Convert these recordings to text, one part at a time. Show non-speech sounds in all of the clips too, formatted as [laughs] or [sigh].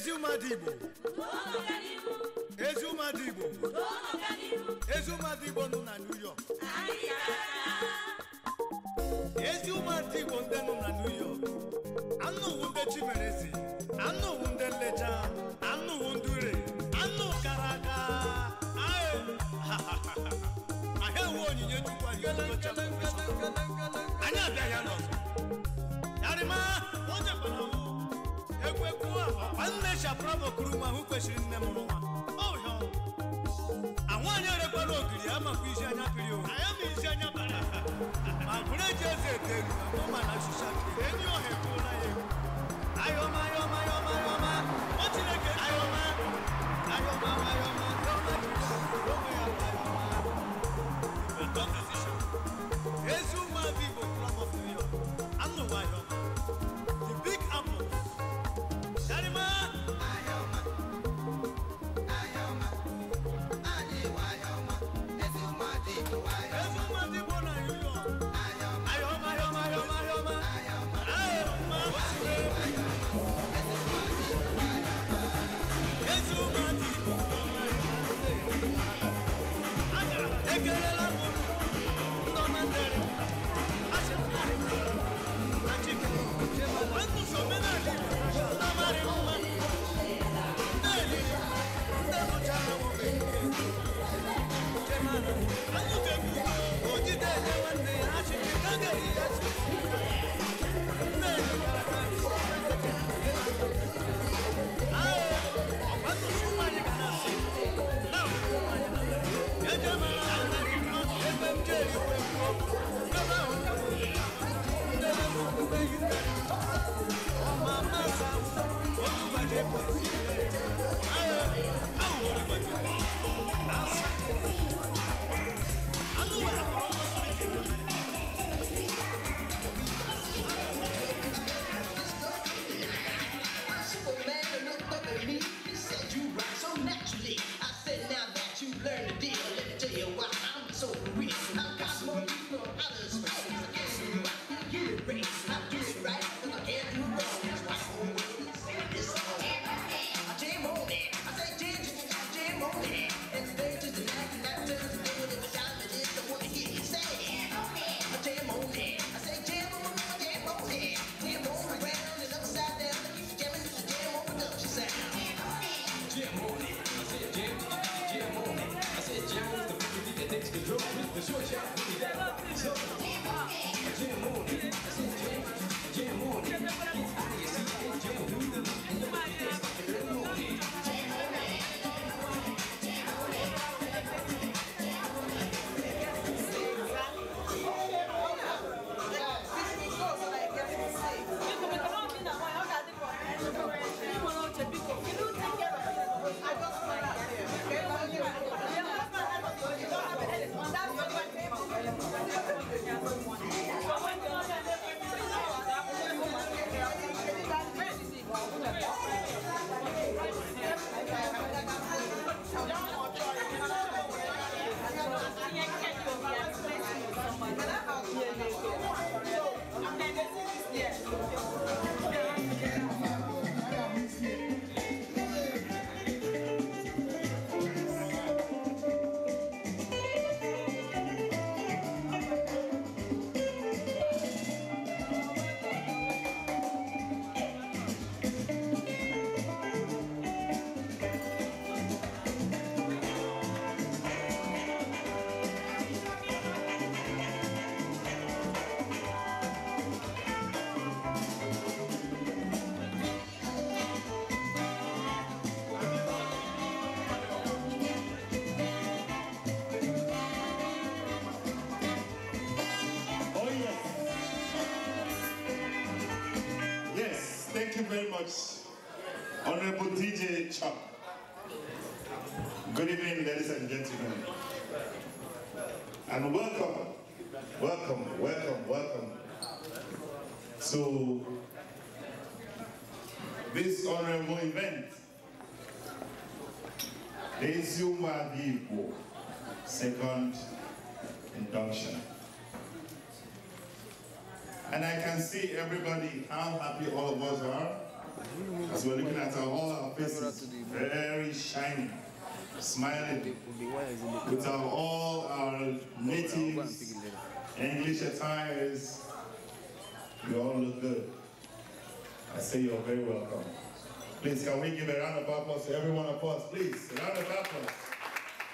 ezi ụmụada Igbo ezi Igbo ezi ụmụada Igbo nọ na New York ezi ụmụada Igbo ndị nọ na New York anụ uwu ndị Chimereze anụ uwu ndị nlecha anụ uwu ndị ure anụ kara aka [laughs] ahịa uwe onyinye Chukwu anyị abịaghị n'ọzọ onye ekwekwu annecha bravo kuru m ahụ kwesịrị nne m n'ụwa anwaanyị erekwala ogiri amakwa isi anya piri owu ma bụrụ eji eze ete egwu ọma ọ going DJ Chop. Good evening, ladies and gentlemen. And welcome, welcome, welcome, welcome to this honorable event. This Yuma second induction. And I can see everybody, how happy all of us are. As we're looking at all our faces, very shining, smiling, with our, all our natives, English attires, you all look good. I say you're very welcome. Please, can we give a round of applause to every one of us? Please, a round of applause.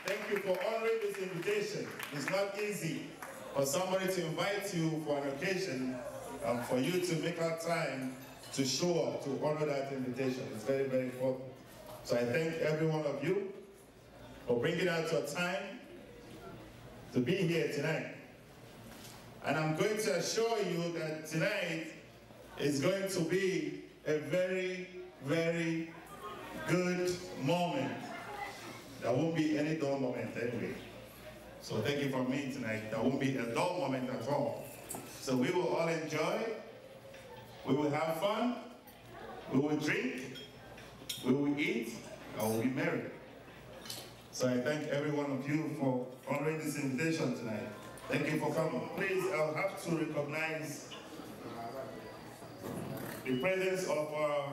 Thank you for honoring this invitation. It's not easy for somebody to invite you for an occasion and for you to make our time to show up, to honor that invitation. It's very, very important. So I thank every one of you for bringing out your time to be here tonight. And I'm going to assure you that tonight is going to be a very, very good moment. There won't be any dull moment anyway. So thank you for me tonight. There won't be a dull moment at all. So we will all enjoy we will have fun, we will drink, we will eat, and we will be merry. So I thank every one of you for honoring this invitation tonight. Thank you for coming. Please, I'll have to recognize the presence of our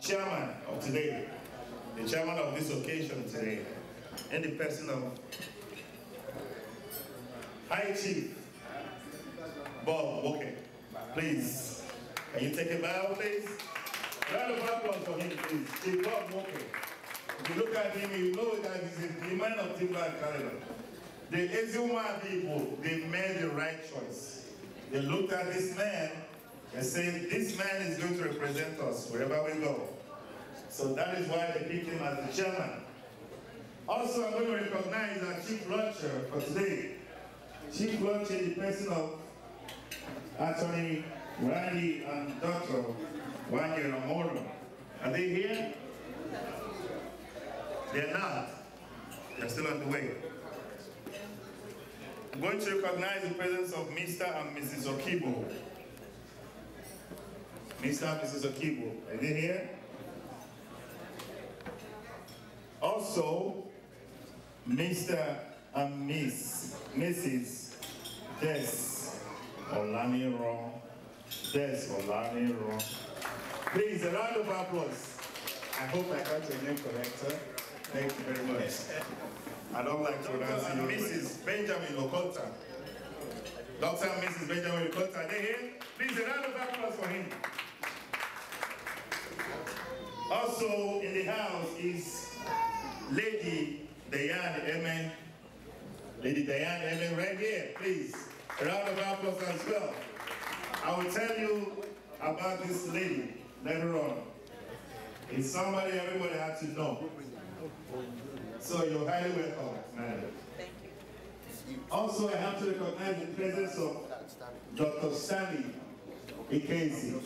chairman of today, the chairman of this occasion today, and the person of High Chief Bob Woke. Please. Can you take a bow, please? Round of applause for him, please. Steve Bob If you look at him, you know that he's a man of Timberland caliber. The Ezuma people, they made the right choice. They looked at this man and said, this man is going to represent us wherever we go. So that is why they picked him as the chairman. Also, I'm going to recognize our chief lecturer for today. Chief lecturer, the person of Attorney Randy and Dr. and Ramoro. Are they here? They're not. They're still on the way. I'm going to recognize the presence of Mr. and Mrs. Okibo. Mr. and Mrs. Okibo, are they here? Also, Mr. and Miss, Mrs. Des Olamiro Olani Please, a round of applause. I hope I got your name correct, sir. Thank you very much. I don't like to pronounce you. Mrs. Benjamin Okota. Dr. and Mrs. Benjamin Okota, they here? Please, a round of applause for him. Also in the house is Lady Diane Emen. Lady Diane Emen right here, please. A round of applause as well. I will tell you about this lady later on. It's somebody everybody has to know. So you're highly welcome, madam. Thank you. Also, I have to recognize the presence of Dr. Stanley Ikenzi.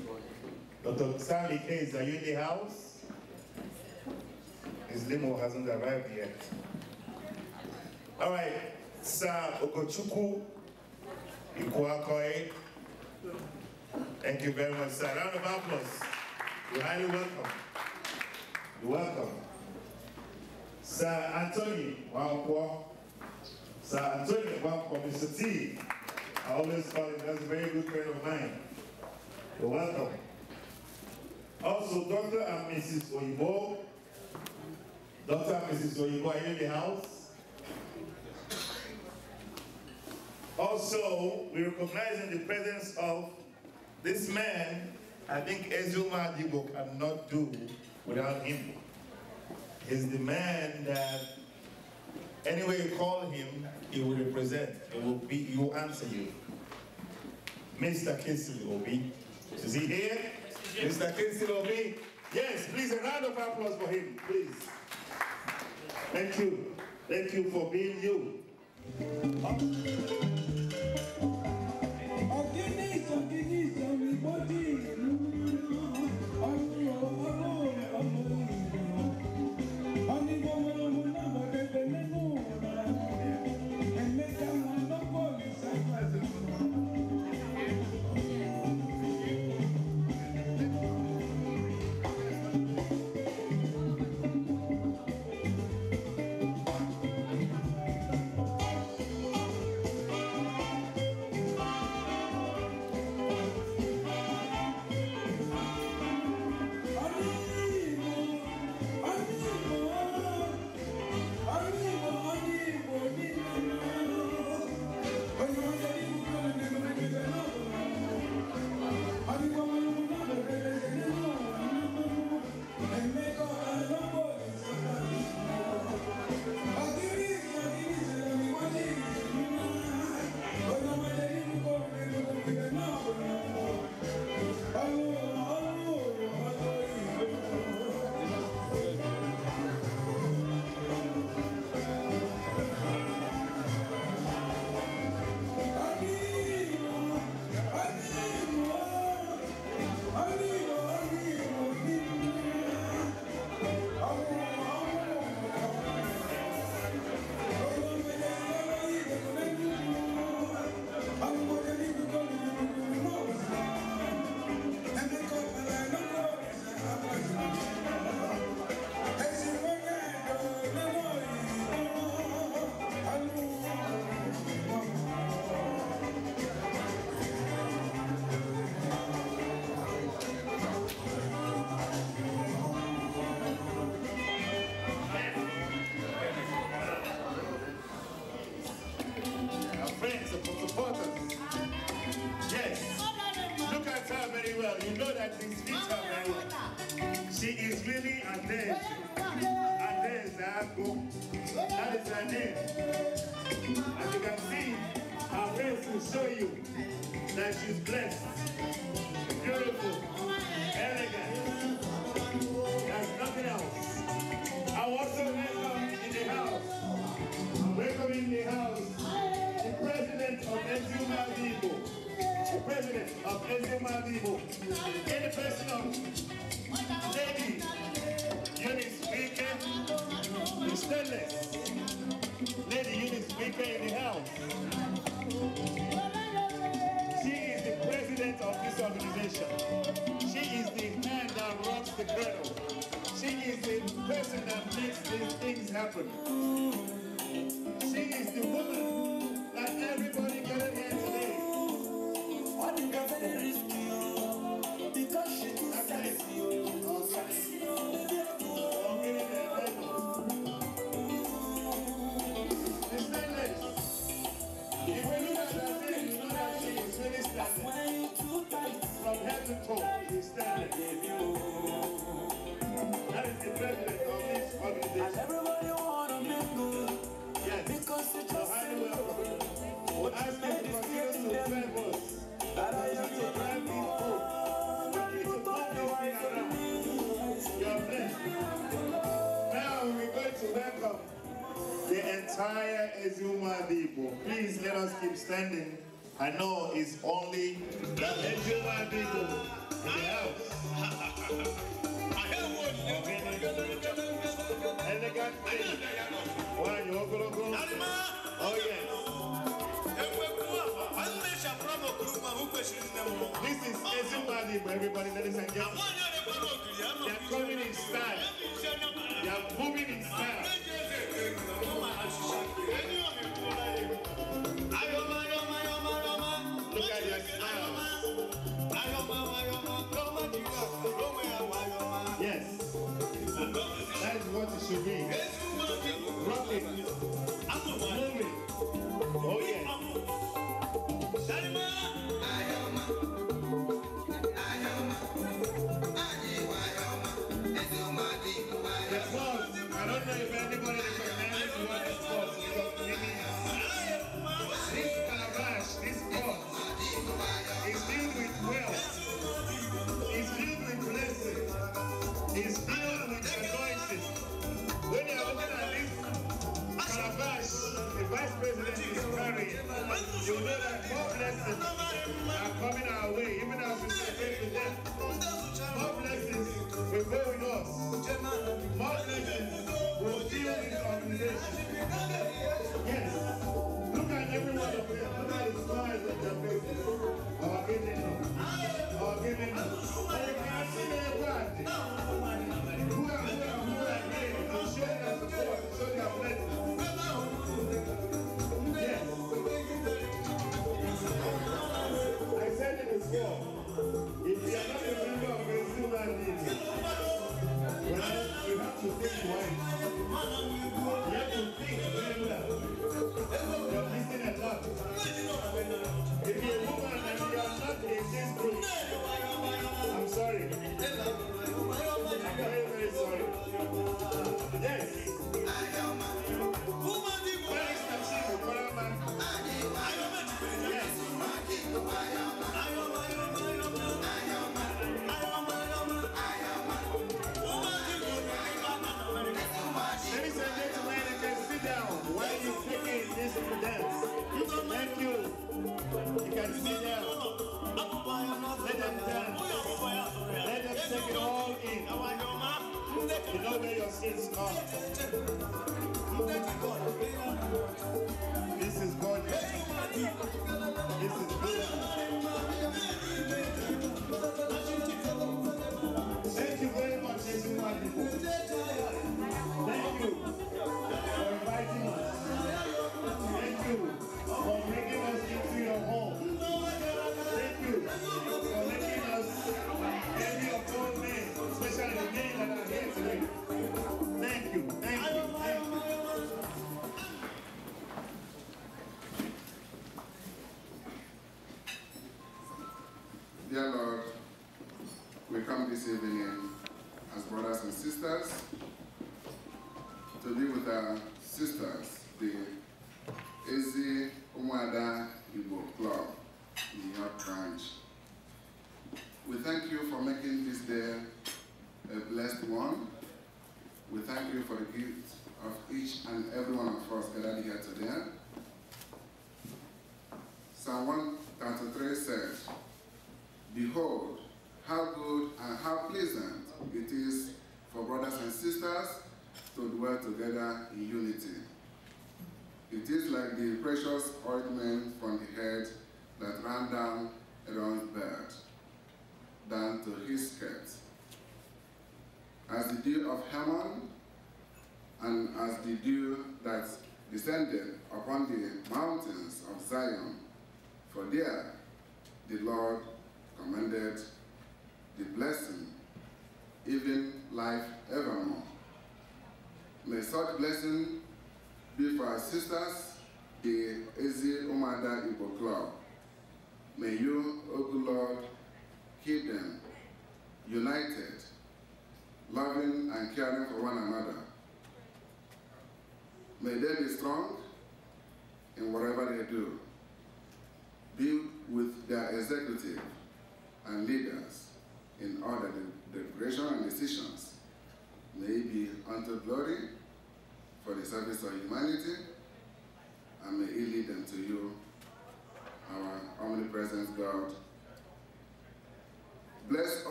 Dr. Stanley Ikenzi, are you in the house? His limo hasn't arrived yet. All right, Sir Okochuku Ikuakoe. Thank you very much, sir. Round of applause. You're highly welcome. You're welcome. Sir Anthony Wangpo. Sir Anthony Wangpo, Mr. T. I always call him, that's a very good friend of mine. You're welcome. Also, Dr. and Mrs. Oyibo. Dr. and Mrs. Oyibo, are you in the house? Also, we recognize in the presence of this man, I think Ezuma Adibo cannot do without him. He's the man that, anyway you call him, he will represent, he will, be, he will answer you. Mr. Kinsley Obi. Is he here? Mr. Kinsley Obi? Yes, please, a round of applause for him, please. Thank you. Thank you for being you. on organize, everybody.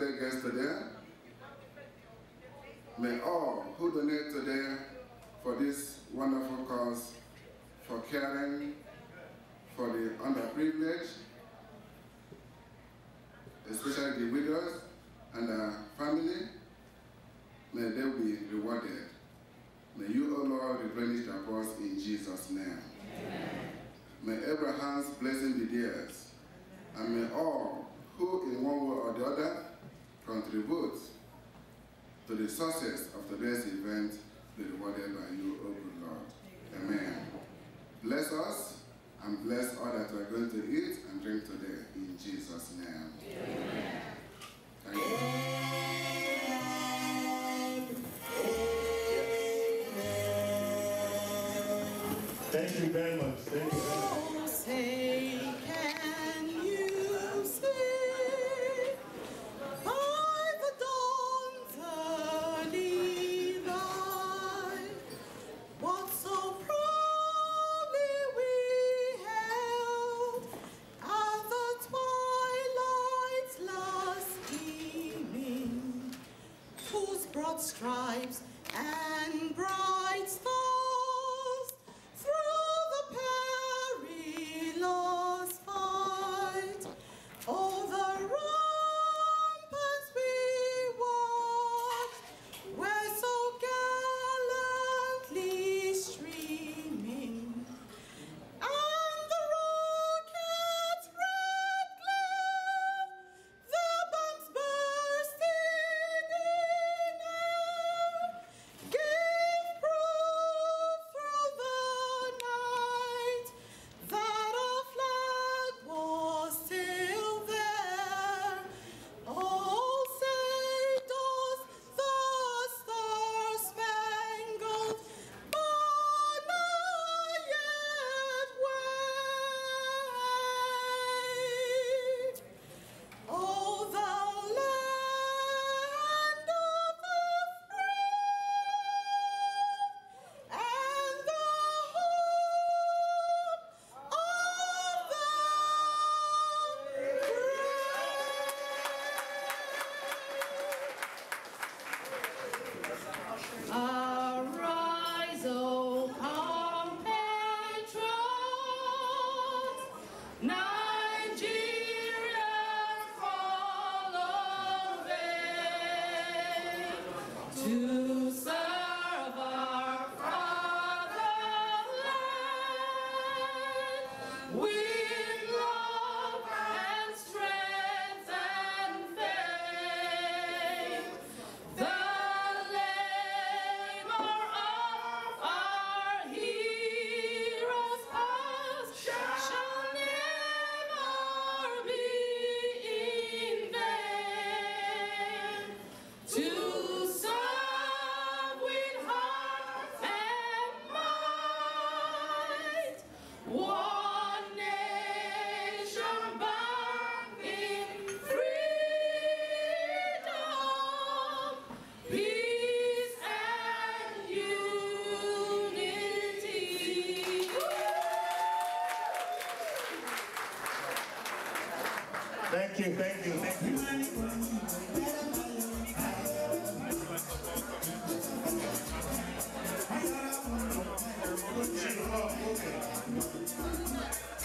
I May all who donate today for this wonderful cause, for caring for the underprivileged, especially the widows and their family, may they be rewarded. May you, O Lord, replenish their cause in Jesus' name. Amen. May Abraham's blessing be theirs, and may all who in one way or the other contribute to the success of today's event be rewarded by you, O good Lord. Amen. Bless us and bless all that we are going to eat and drink today in Jesus' name. Amen. Thank you.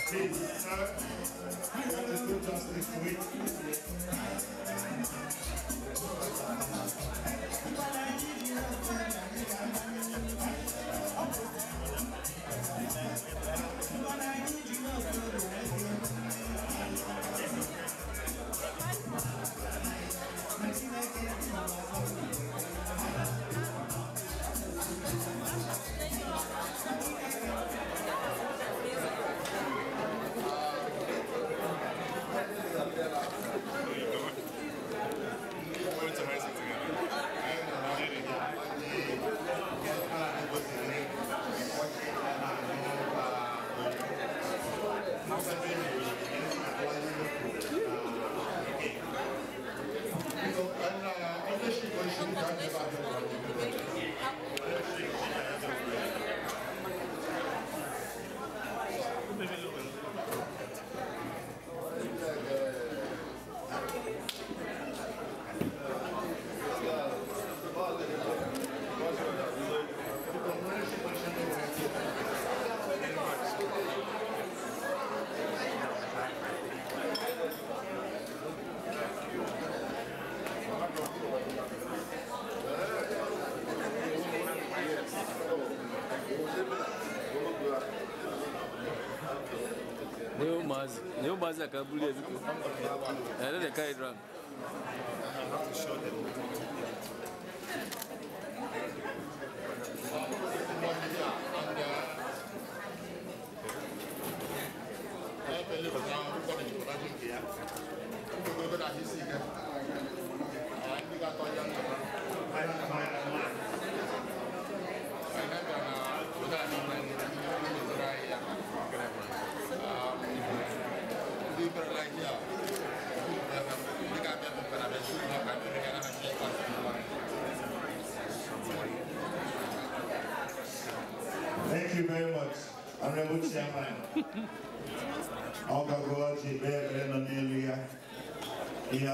6 just this week. I need you casaca, beleza.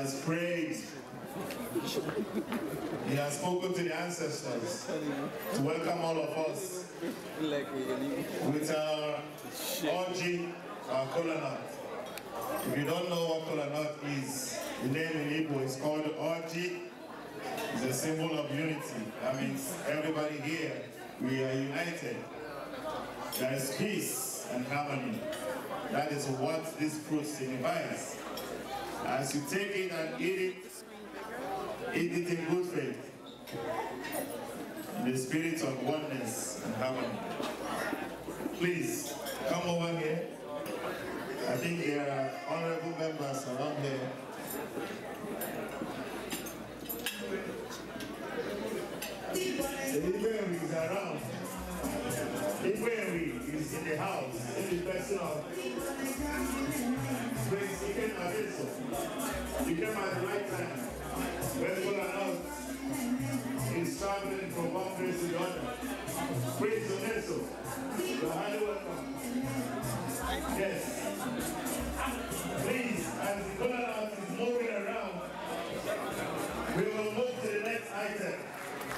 has prayed. He has spoken to the ancestors to welcome all of us with our orgy, our colonel. If you don't know what colonel is, the name in Igbo is called orgy. It's a symbol of unity. That means everybody here, we are united. There is peace and harmony. That is what this fruit signifies. As you take it and eat it, eat it in good faith, in the spirit of oneness and harmony. Please, come over here. I think there are honorable members around here. Ibrahim is around. Ibrahim is in the house, in the person of Prince Iken Adesso. He came at right time. When people are out, he's traveling from one place to the other. Praise the Nestle. You're highly welcome. Yes. Please, as the color is moving around, we will move to the next item.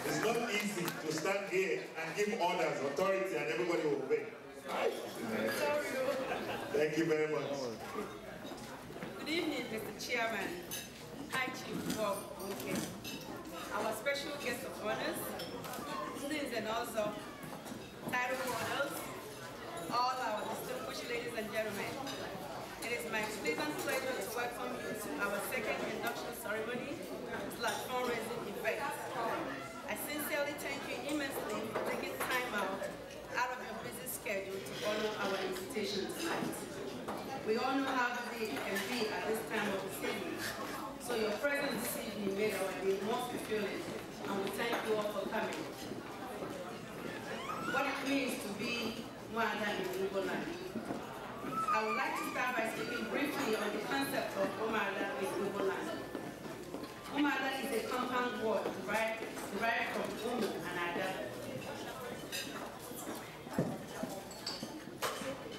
It's not easy to stand here and give orders, authority, and everybody will obey. Thank you very much. Good evening, Mr. Chairman, High Chief Bob Bunke, our special guest of honors, students and also title all our distinguished ladies and gentlemen. It is my pleasant pleasure to welcome you to our second induction ceremony slash fundraising event. I sincerely thank you immensely for taking time out out of your busy schedule to honor our invitation tonight. We all know how busy it can be at this time of the season. So your presence this evening made our day most fulfilling, and we thank you all for coming. What it means to be Mwanda in Ugoland. I would like to start by speaking briefly on the concept of Umada in Ugoland. Umada is a compound word derived, derived from Umu and Ada.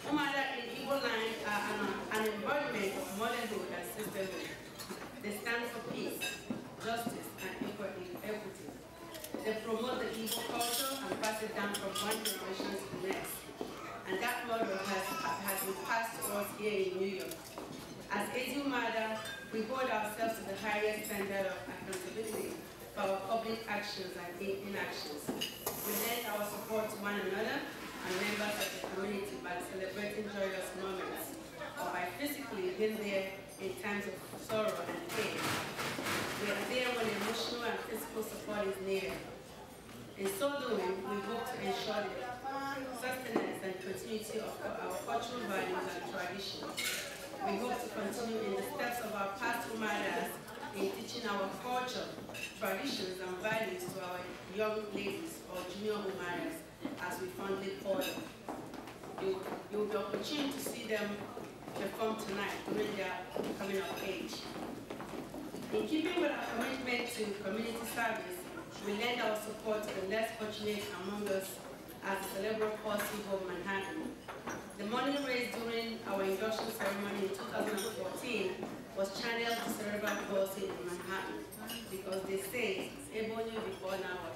Umada in Igbo land involvement of motherhood and sisterhood. They stand for peace, justice, and equity. They promote the Igbo culture and pass it down from one generation to the next. And that model has, has been passed to us here in New York. As Asian Mother, we hold ourselves to the highest standard of accountability for our public actions and inactions. We lend our support to one another and members of the community by celebrating joyous moments or by physically been there in times of sorrow and pain. We are there when emotional and physical support is needed. In so doing, we hope to ensure the sustenance and continuity of our cultural values and traditions. We hope to continue in the steps of our past mothers in teaching our culture, traditions, and values to our young ladies or junior mothers, as we fondly call them. You, you will be opportunity to see them perform tonight when they coming of age. In keeping with our commitment to community service, we lend our support to the less fortunate among us as the Cerebral Palsy of Manhattan. The money raised during our induction ceremony in 2014 was channeled to cerebral palsy in Manhattan because they say Ebony before now.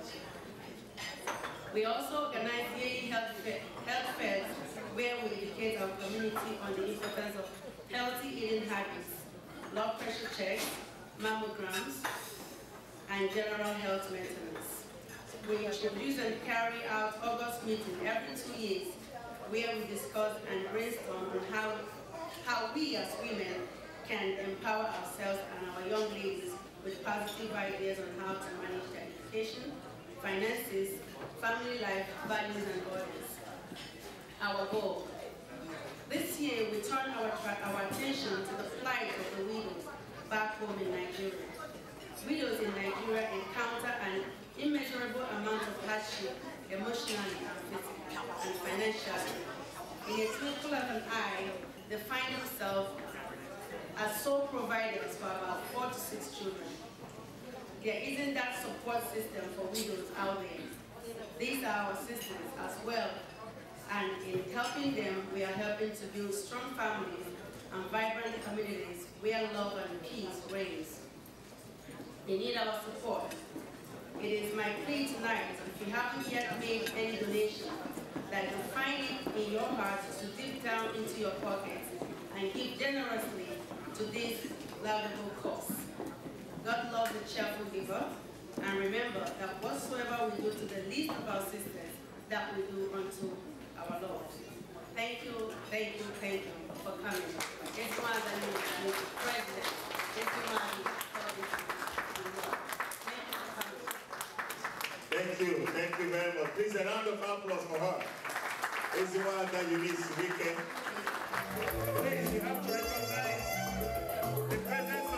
We also organized yearly health, fair, health fairs where we educate our community on the importance of healthy eating habits, blood pressure checks, mammograms, and general health maintenance. We introduce and carry out August meeting every two years where we discuss and brainstorm on how, how we as women can empower ourselves and our young ladies with positive ideas on how to manage their education, finances, family life, values and bodies our goal. This year, we turn our, our attention to the plight of the widows back home in Nigeria. Widows in Nigeria encounter an immeasurable amount of hardship, emotionally and physically, and financially. In a twinkle of an eye, they find themselves as sole providers for about four to six children. There isn't that support system for widows out there. These are our sisters as well and in helping them, we are helping to build strong families and vibrant communities where love and peace reigns. They need our support. It is my plea tonight, if you haven't yet made any donation, that you find it in your heart to dip down into your pockets and give generously to this laudable cause. God loves a cheerful giver, and remember that whatsoever we do to the least of our sisters, that we do unto our Lord. Thank you, thank you, thank you for coming. This one that you are present. This one Thank you, thank you very much. Please a round of applause for her. It's is one that you need speaking. Please, you have to recognize the presence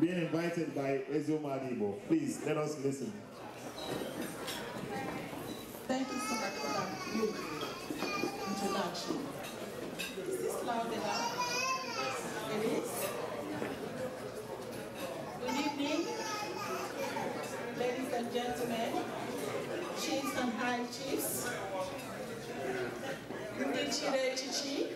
being invited by Ezio Madibo. Please, let us listen. Thank you so much for that introduction. Is this loud enough? It is. Good evening, ladies and gentlemen, chiefs and high chiefs, Ndichire Chichi,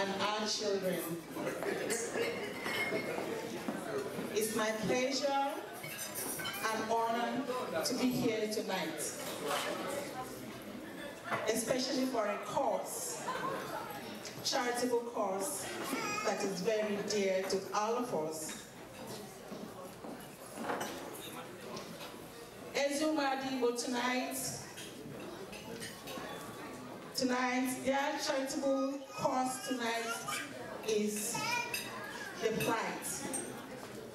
and our children. It's my pleasure and honor to be here tonight, especially for a cause, charitable cause that is very dear to all of us. Ezuma but tonight Tonight, their charitable cause tonight is the plight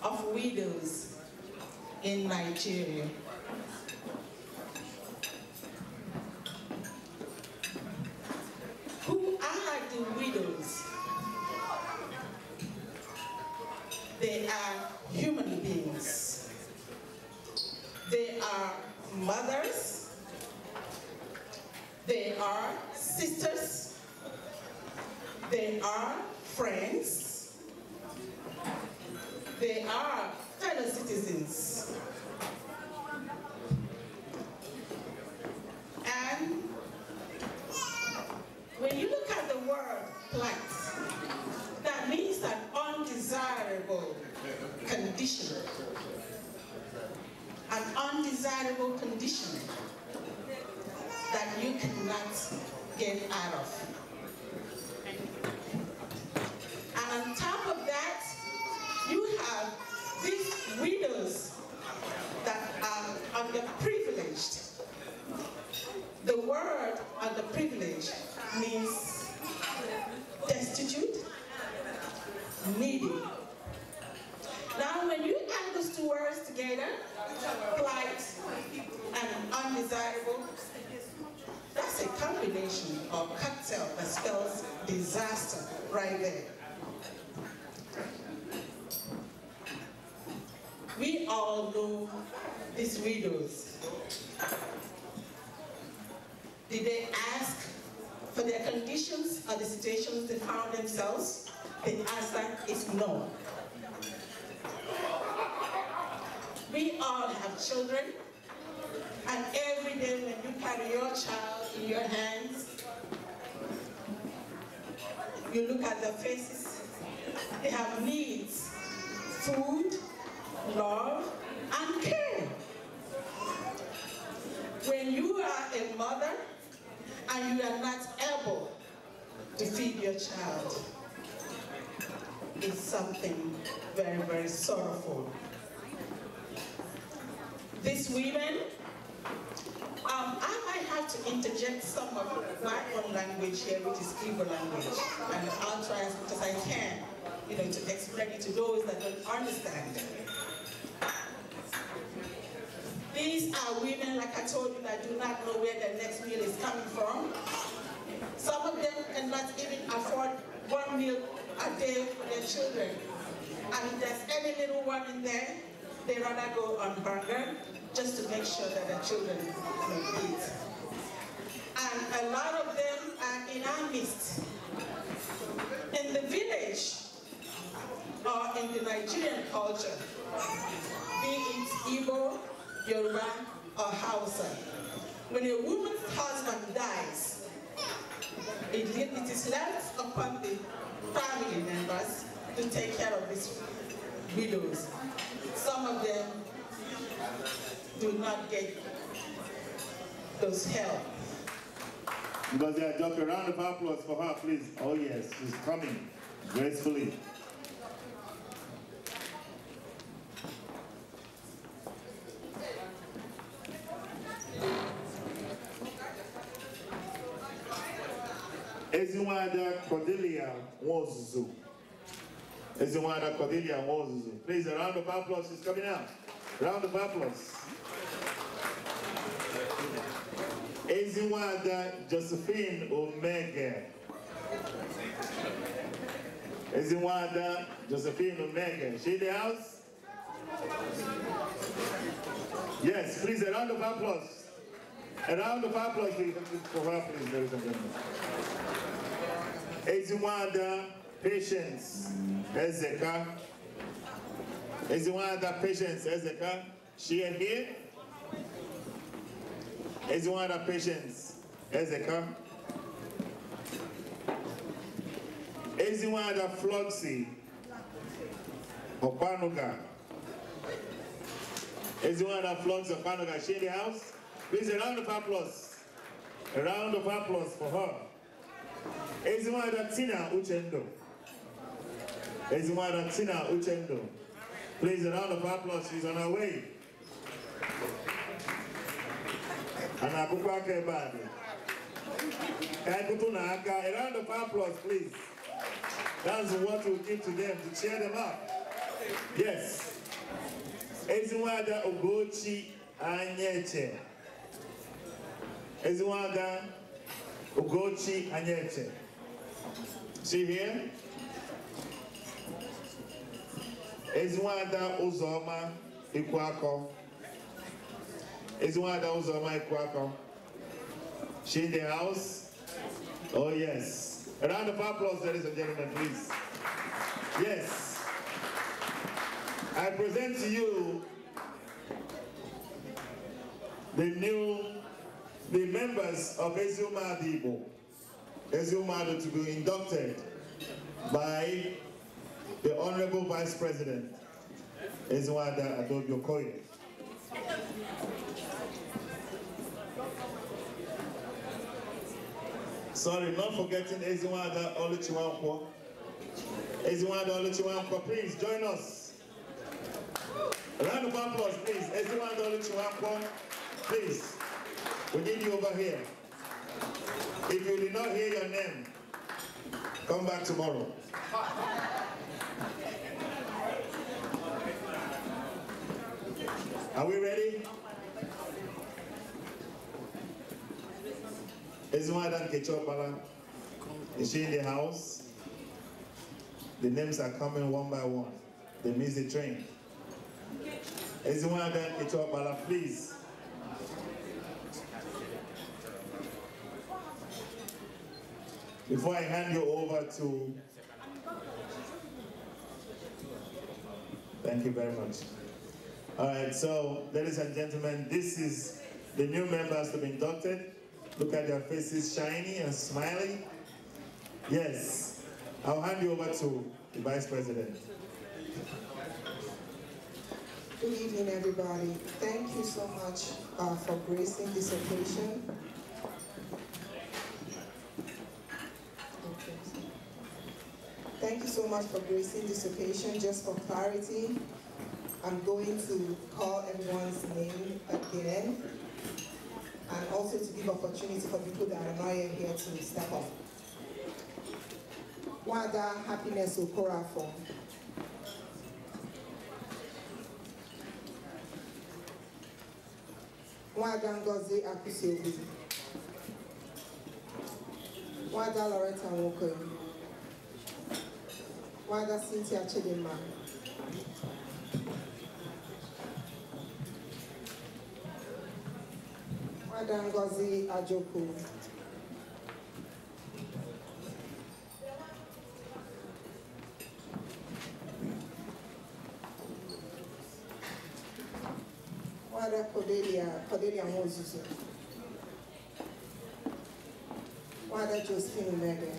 of widows in Nigeria. Who are the widows? They are human beings. They are mothers. They are sisters, they are friends, they are fellow citizens. And when you look at the word plight, that means an undesirable condition. An undesirable condition that you cannot get out of. And on top of that, you have these widows that are underprivileged. The word underprivileged means destitute, needy. Now when you add those two words together, plight and undesirable, that's a combination of cocktail that spells disaster right there. We all know these widows. Did they ask for their conditions or the situations they found themselves? The answer is no. We all have children and every day when you carry your child in your hands, you look at the faces. They have needs, food, love, and care. When you are a mother and you are not able to feed your child, it's something very, very sorrowful. These women um, I might have to interject some of my own language here, which is Igbo language, and I'll try as much as I can, you know, to explain it to those that don't understand. These are women, like I told you, that do not know where their next meal is coming from. Some of them cannot even afford one meal a day for their children. And if there's any little one in there, they rather go on hunger just to make sure that the children eat. And a lot of them are in our midst. In the village, or in the Nigerian culture, be it Igbo, Yoruba, or Hausa. When a woman's husband dies, it, it is left upon the family members to take care of these widows. Some of them do not get those help. Because they are a Round of applause for her, please. Oh yes, she's coming gracefully. Ezinwada Cordelia Wozuzu. Ezimwana Cordelia Moses. Please, a round of applause is coming out. Round of applause. Ezimwana Josephine Omega. Ezimwana Josephine Omega. She in the house? Yes, please, a round of applause. A round of applause for her, please, ladies and gentlemen. Ezimwana patience Ezeka. Is the one of the patience Ezeka? She and here? Is the one of the patience Ezeka? Is the one of the Floxy Opanuga? Is the one of the Floxy Opanuga? She in the house? Please a round of applause. A round of applause for her. Is the one of the Tina Uchendo? is Mother Uchendo. Please, a round of applause. She's on her way. I Anakukwake bado. Kaikutunaka. A round of applause, please. That's what we give to them to cheer them up. Yes. Ezinwada Ogochi Anyeche. Ezinwada Ogochi Anyeche. See here? ezinwada ụzọma ikwu akọ ezinwada ụzọma ikwu akọ she in the house oh yes a round of applause ladies and gentlemen please yes i present to you the new the members of Ezumadu Igbo, Ezumadu to be inducted by the Honorable Vice President is Wada Adobio Koye. Sorry, not forgetting Eziwada Oluchiwankwo. Eziwada Oluchiwanko, please join us. A round of applause, please. Eziwada Oluchiwanko, please. We need you over here. If you did not hear your name, come back tomorrow. Are we ready? Is Madam Kechopala? Is she in the house? The names are coming one by one. They miss the train. Is Madam Kechopala, please? Before I hand you over to... Thank you very much. All right, so ladies and gentlemen, this is the new members to be inducted. Look at their faces, shiny and smiling. Yes, I'll hand you over to the Vice President. Good evening, everybody. Thank you so much uh, for gracing this occasion. Okay. Thank you so much for gracing this occasion. Just for clarity, I'm going to call everyone's name again and also to give opportunity for people that are not yet here to step up. Wada Happiness for. Wada Ngozi Akusiobi. Wada Loretta Nwokoye. Wada Cynthia Chidinma. Ada Ngozi Ajoku. Wada Cordelia, Cordelia Moses. Wada Josephine Mede.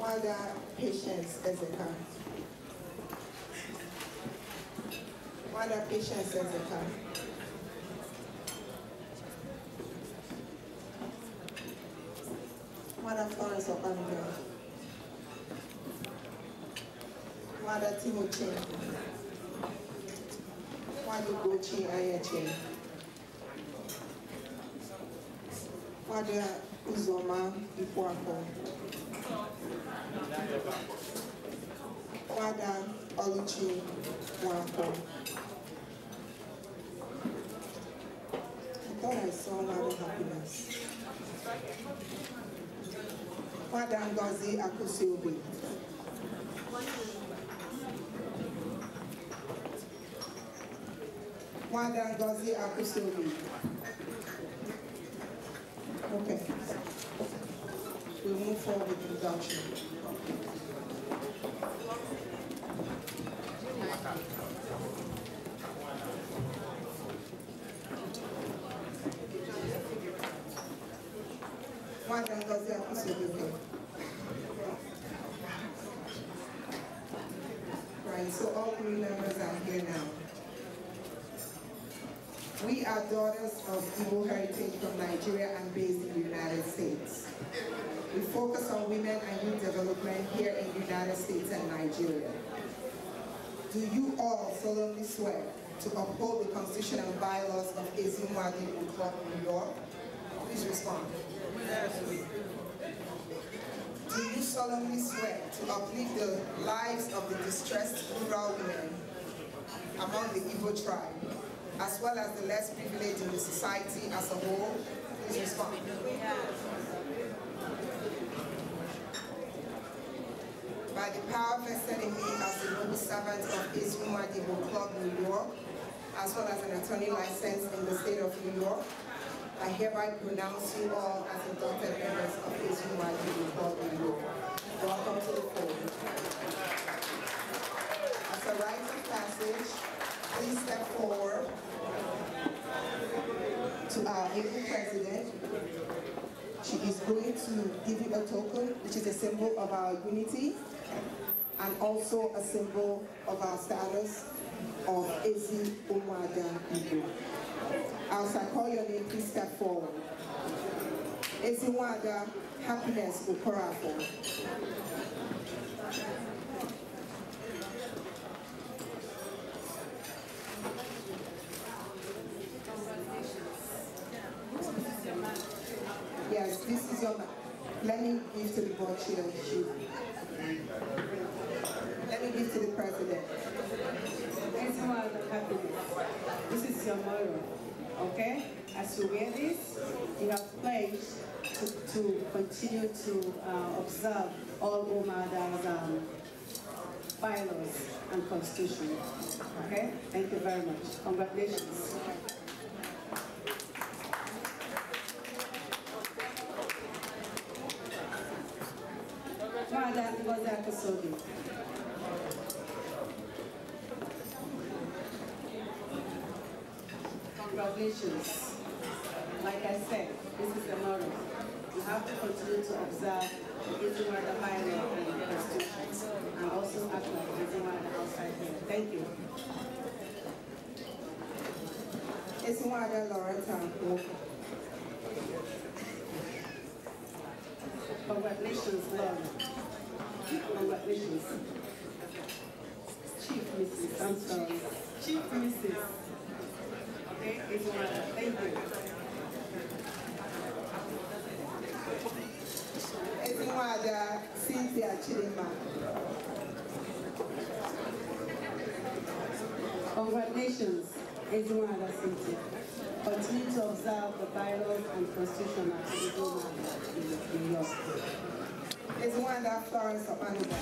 Wada Patience Ezekiel. other patients as they come. Mother Florence Obanjo. Mother Timothy. Mother Gucci Ayache. Mother Uzoma Ipuako. Mother Oluchi Mwako. Lord, I of happiness. Father Ngozi Akusiobi. Father Ngozi Akusiobi. Okay. We'll move forward with production. Right, so all three members are here now. We are daughters of Igbo heritage from Nigeria and based in the United States. We focus on women and youth development here in the United States and Nigeria. Do you all solemnly swear to uphold the constitution and bylaws of Ezumwadi Club, New York? Please respond. Do you solemnly swear to uplift the lives of the distressed rural women among the Igbo tribe, as well as the less privileged in the society as a whole? Please respond. By the power vested in me as the noble servant of Israel Madibo Club, New York, as well as an attorney license in the state of New York, I hereby pronounce you all as adopted members of SUYU Baldwin Law. Welcome to the podium. As a rite of passage, please step forward to our new president. She is going to give you a token, which is a symbol of our unity and also a symbol of our status of Ezi Umwada Igbo. As I call your name, please step forward. Eziwada Happiness Okorafo. Yes, this is your man. Let me give to the board chair. Let me give to the president. Happiness. This is your mother okay? As you wear this, you have pledged to, to continue to uh, observe all Umada's um, bylaws and constitution, okay? Thank you very much. Congratulations. Madam Gozaka Sobi. obligations. Like I said, this is the moral. You have to continue to observe the Izuma, the higher and the Constitution, and also act like Izuma, the outside here. Thank you. Izuma, the Loretta Congratulations, Lord. Congratulations. Chief Mrs. I'm sorry. Chief Mrs. Ezinwada Cynthia Chidima. Congratulations, Ezinwada Cynthia. Continue to observe the bylaws and constitution of at Ezinwada in your state. Ezinwada Florence of Anuba.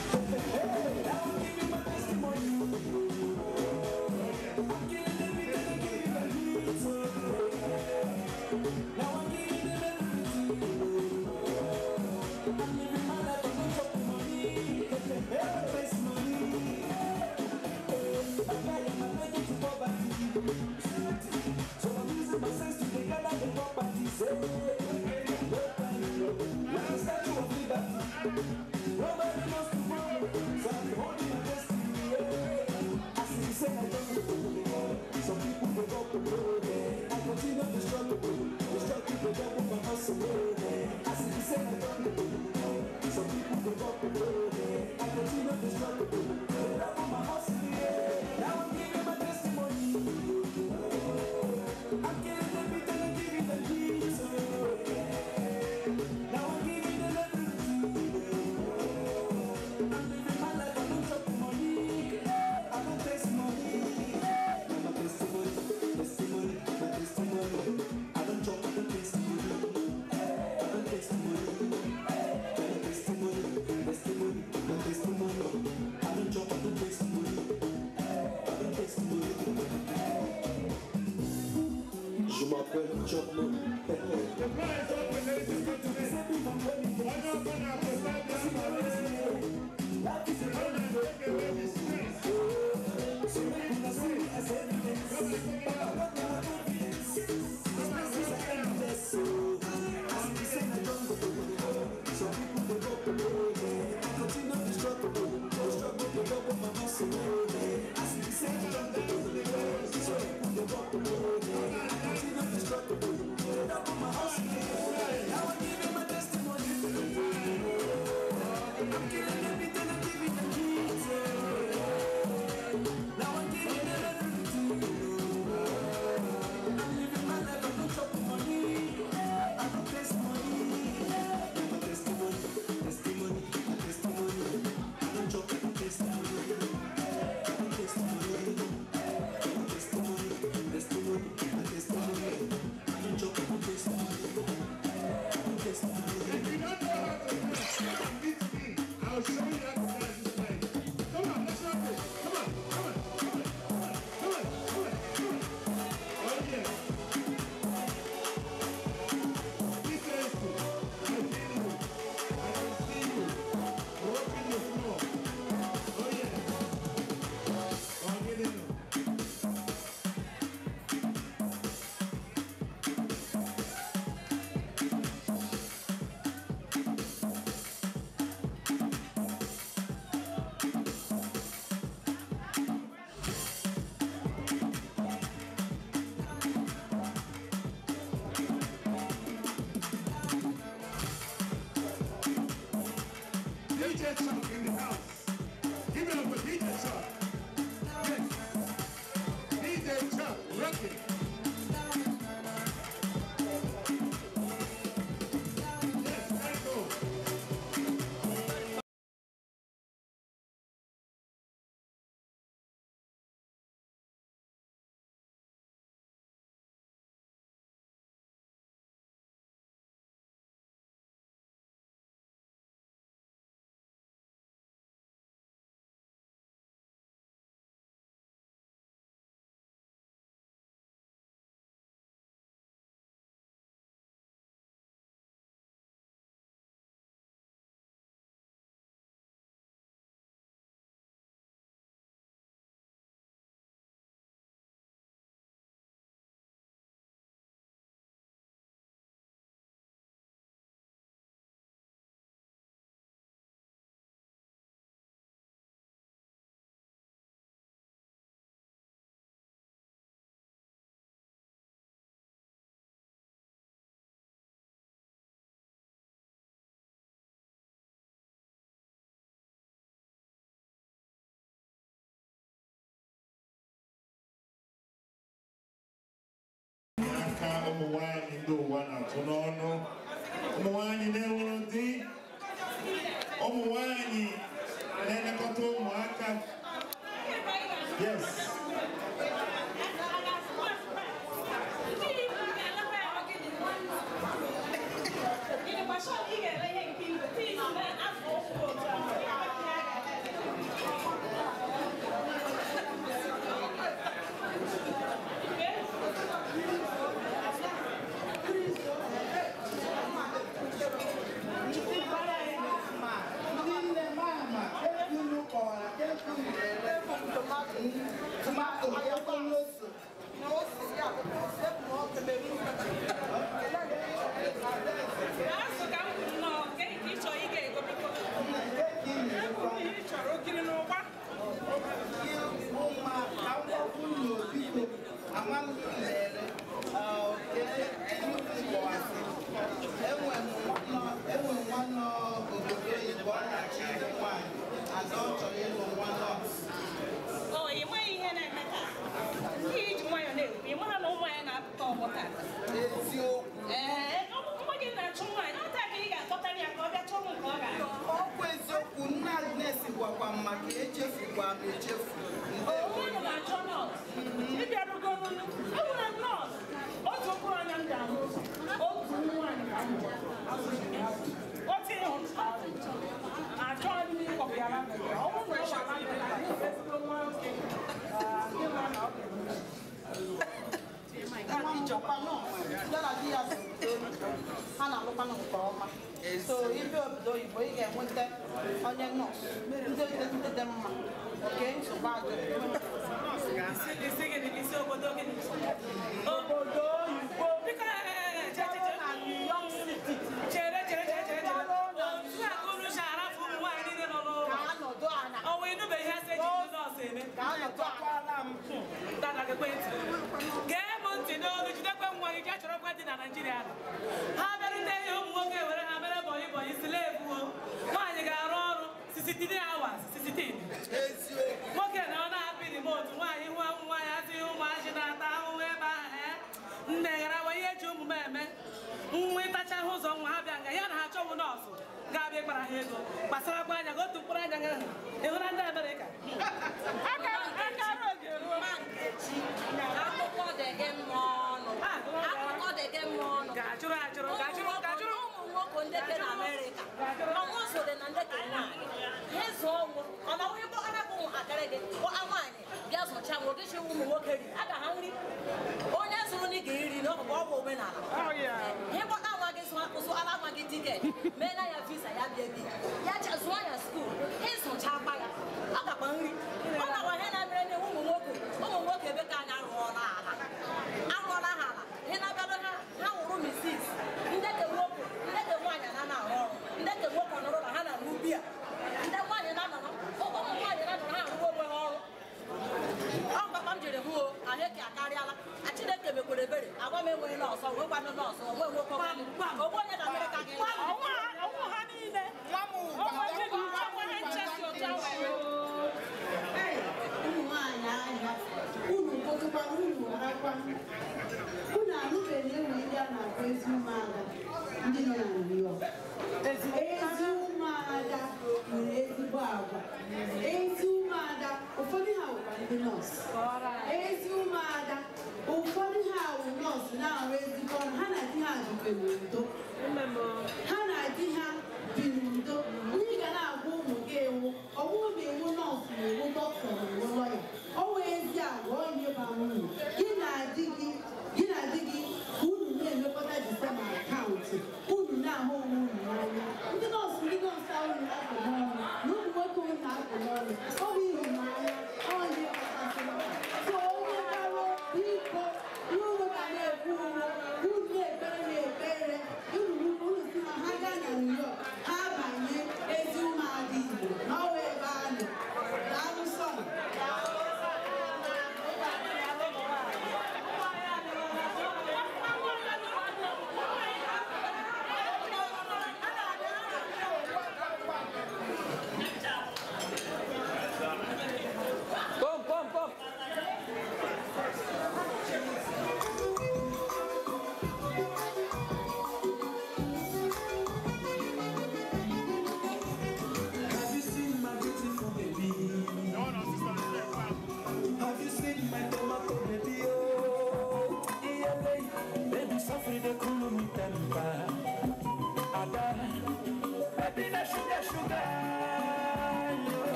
Thank you. Choclo. The is open, ladies and gentlemen. I'm not going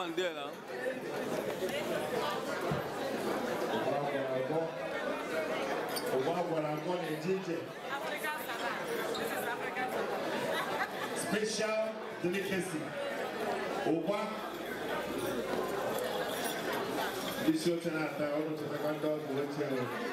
Mandela. Special delicacy. Oba, This your turn after all the second dog you.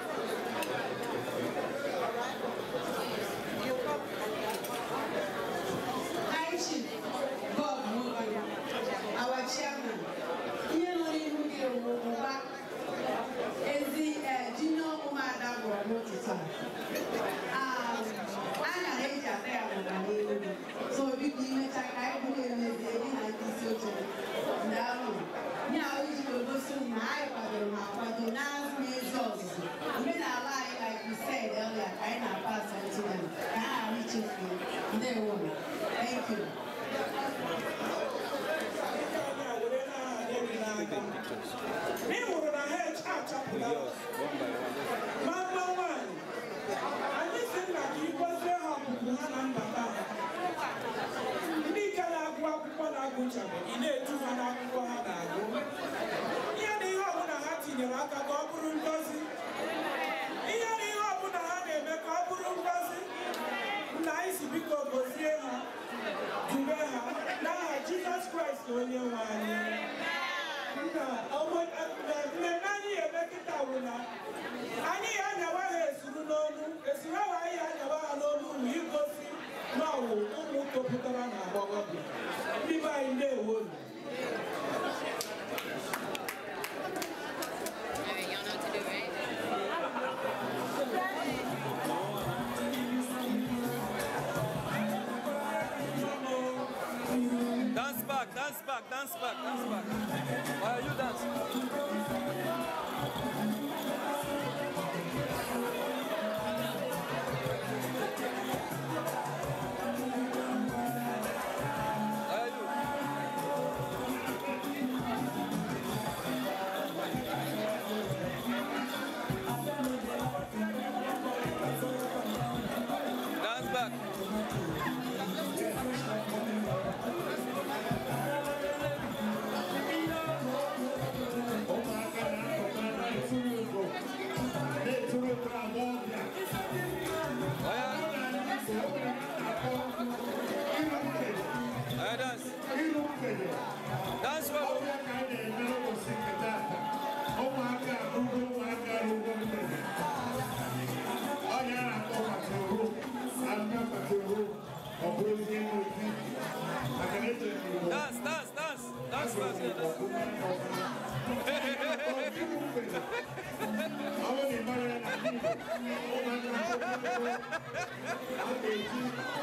back, dance back, dance back, dance back. Why are you dancing? Amém.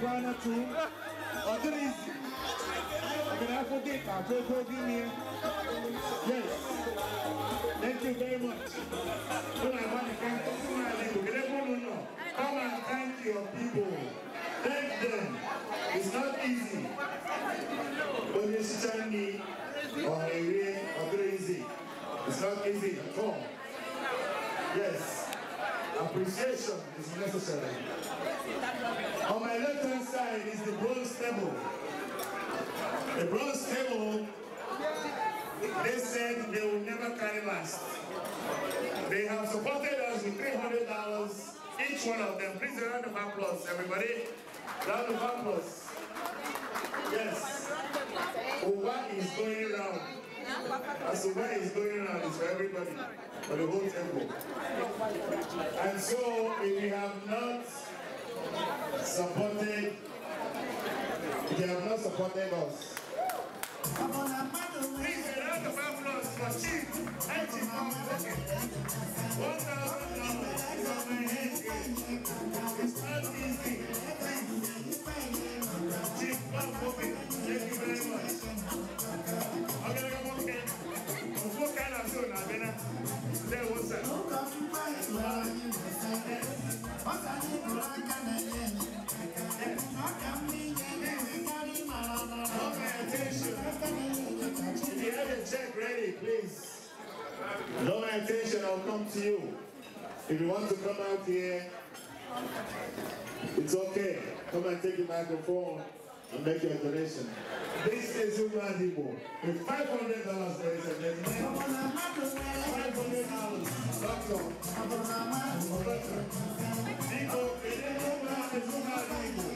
try not to. But it is. I can have i Yes. Thank you very much. I want to thank Come and thank your people. Thank them. It's not easy. But it's Changi or Irene or Crazy. It's not easy at all. Yes. Appreciation is necessary. On my left hand side is the bronze table. The bronze table, they said they will never carry last. They have supported us with $300 each one of them. Please round of applause, everybody. Round of applause. Yes. Uba is going round. As to what is going on it's for everybody, for the whole temple. And so, if you have not supported, if you have not supported us, please a round of applause for Chief Edgy Mountain. $1,000 from my head. It's not easy. Draw my attention, I'll come to you. If you want to come out here, it's okay. Come and take the microphone and make your donation. This is Uman with $500, ladies and gentlemen. $500. Doctor. Doctor. Igbo, Igbo, Igbo, Igbo.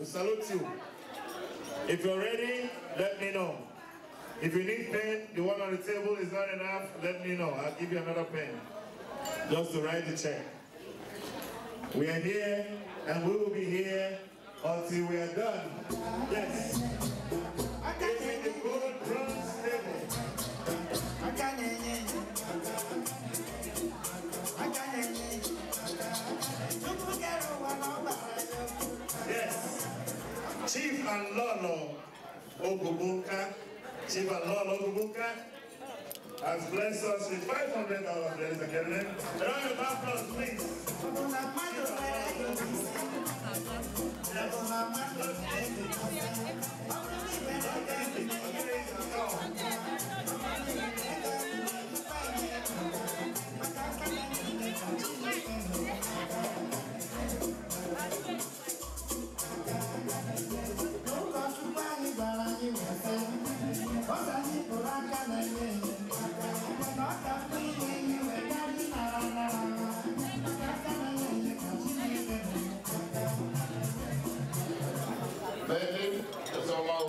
We salute you. If you're ready, let me know. If you need pen, the one on the table is not enough, let me know. I'll give you another pen. Just to write the check. We are here, and we will be here until we are done. Yes. Chief and Lolo Ogugunka, Chief and Lolo Ogugunka, has blessed us with five hundred dollars, ladies and gentlemen. A eh? round of applause, please.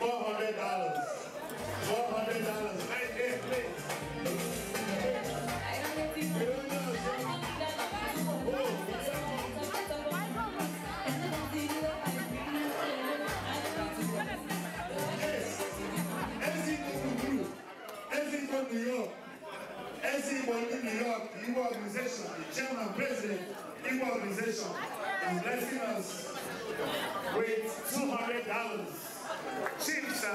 $400. $400 right there, please. New York. Everything in New York, Igbo organization, the president, Igbo organization is blessing us with $200. Senza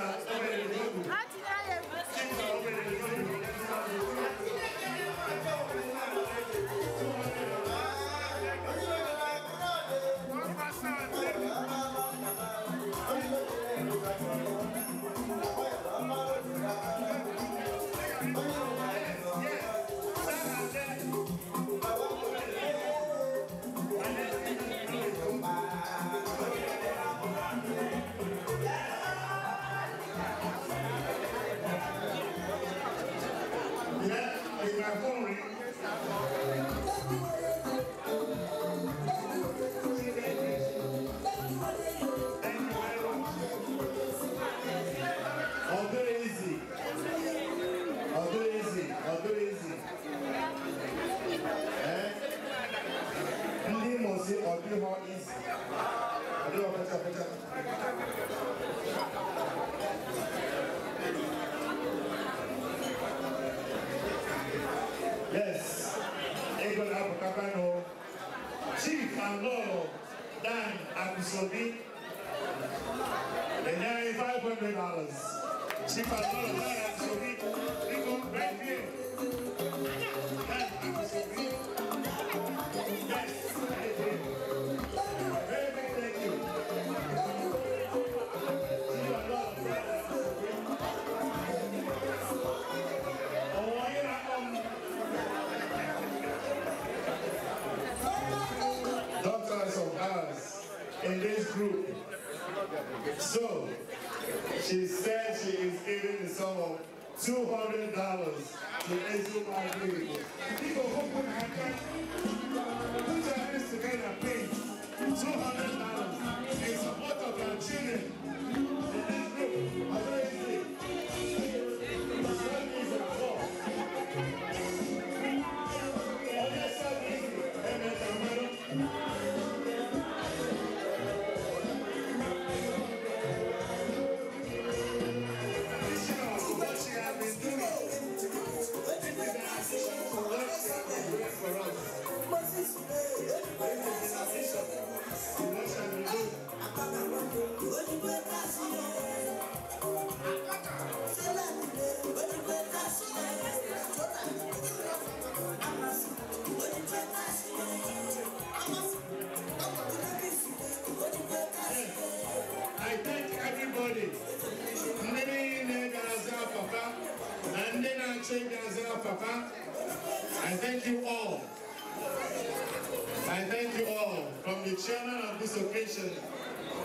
the chairman of this occasion,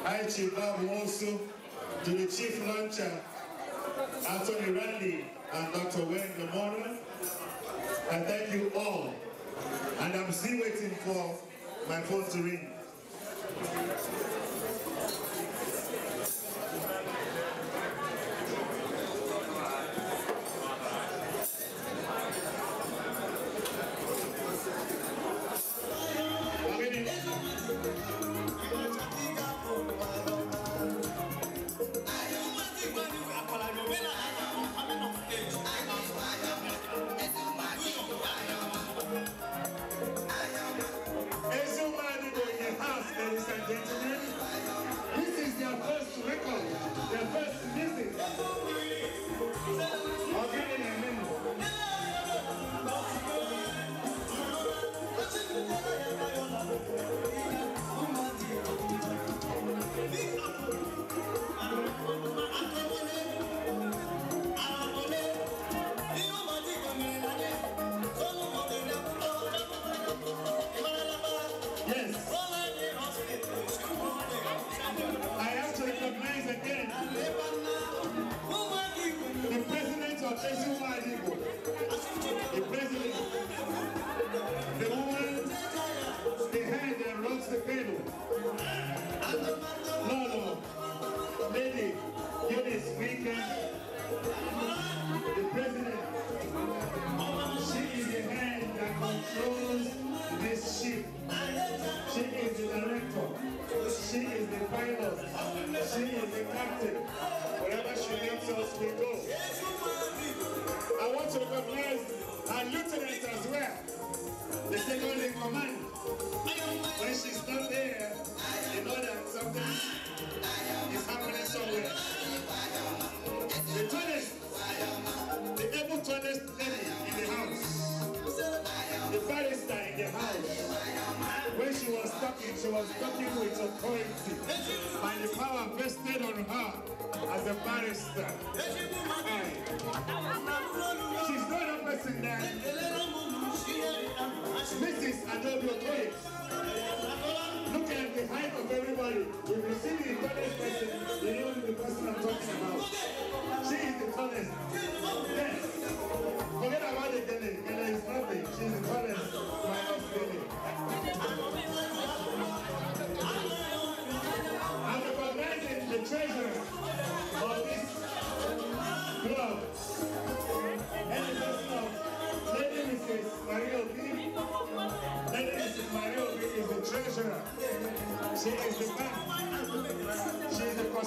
I Chief Bob to the chief launcher, Anthony Randy and Dr. Wayne Lamona. I thank you all. And I'm still waiting for my phone to ring.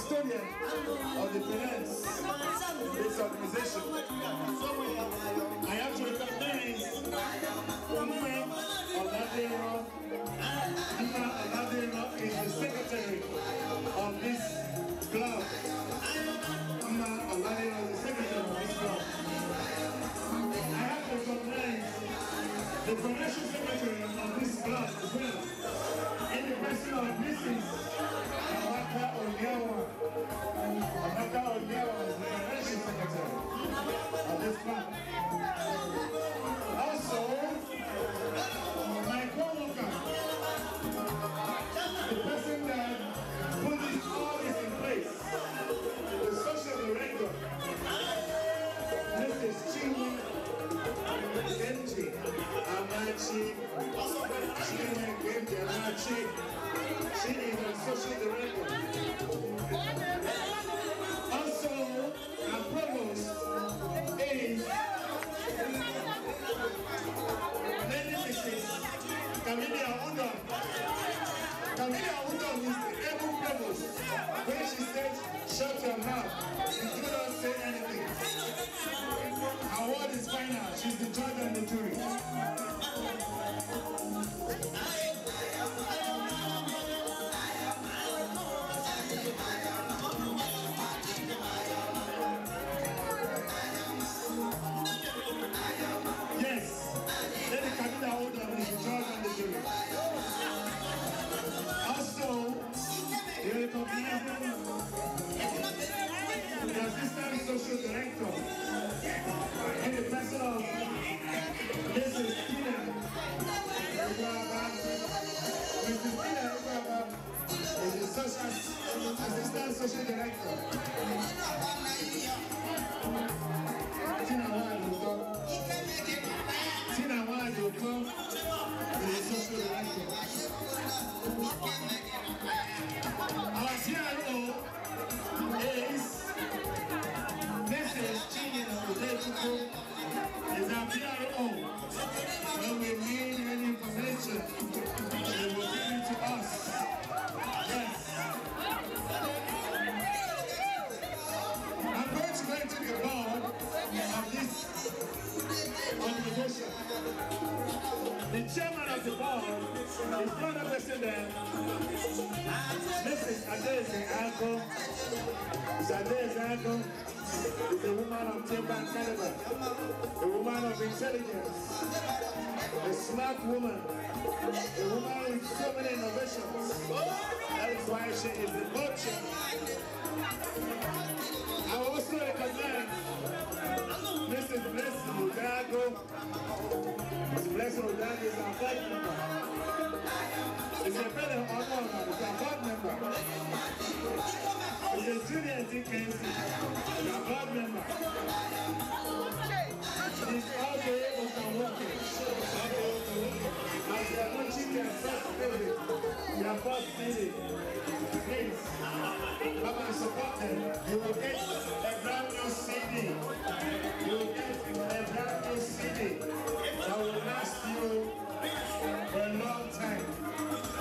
custodian of the finance this organization. I have to recognize Uma Oladero. is the secretary of this club. Mama Oladero is the secretary of this club. I have to recognize the financial secretary of this club as well. In the person of Mrs дьявола, от начала дьявола, завершится хотя бы. А без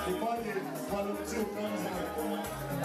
The body, volume 2 comes out.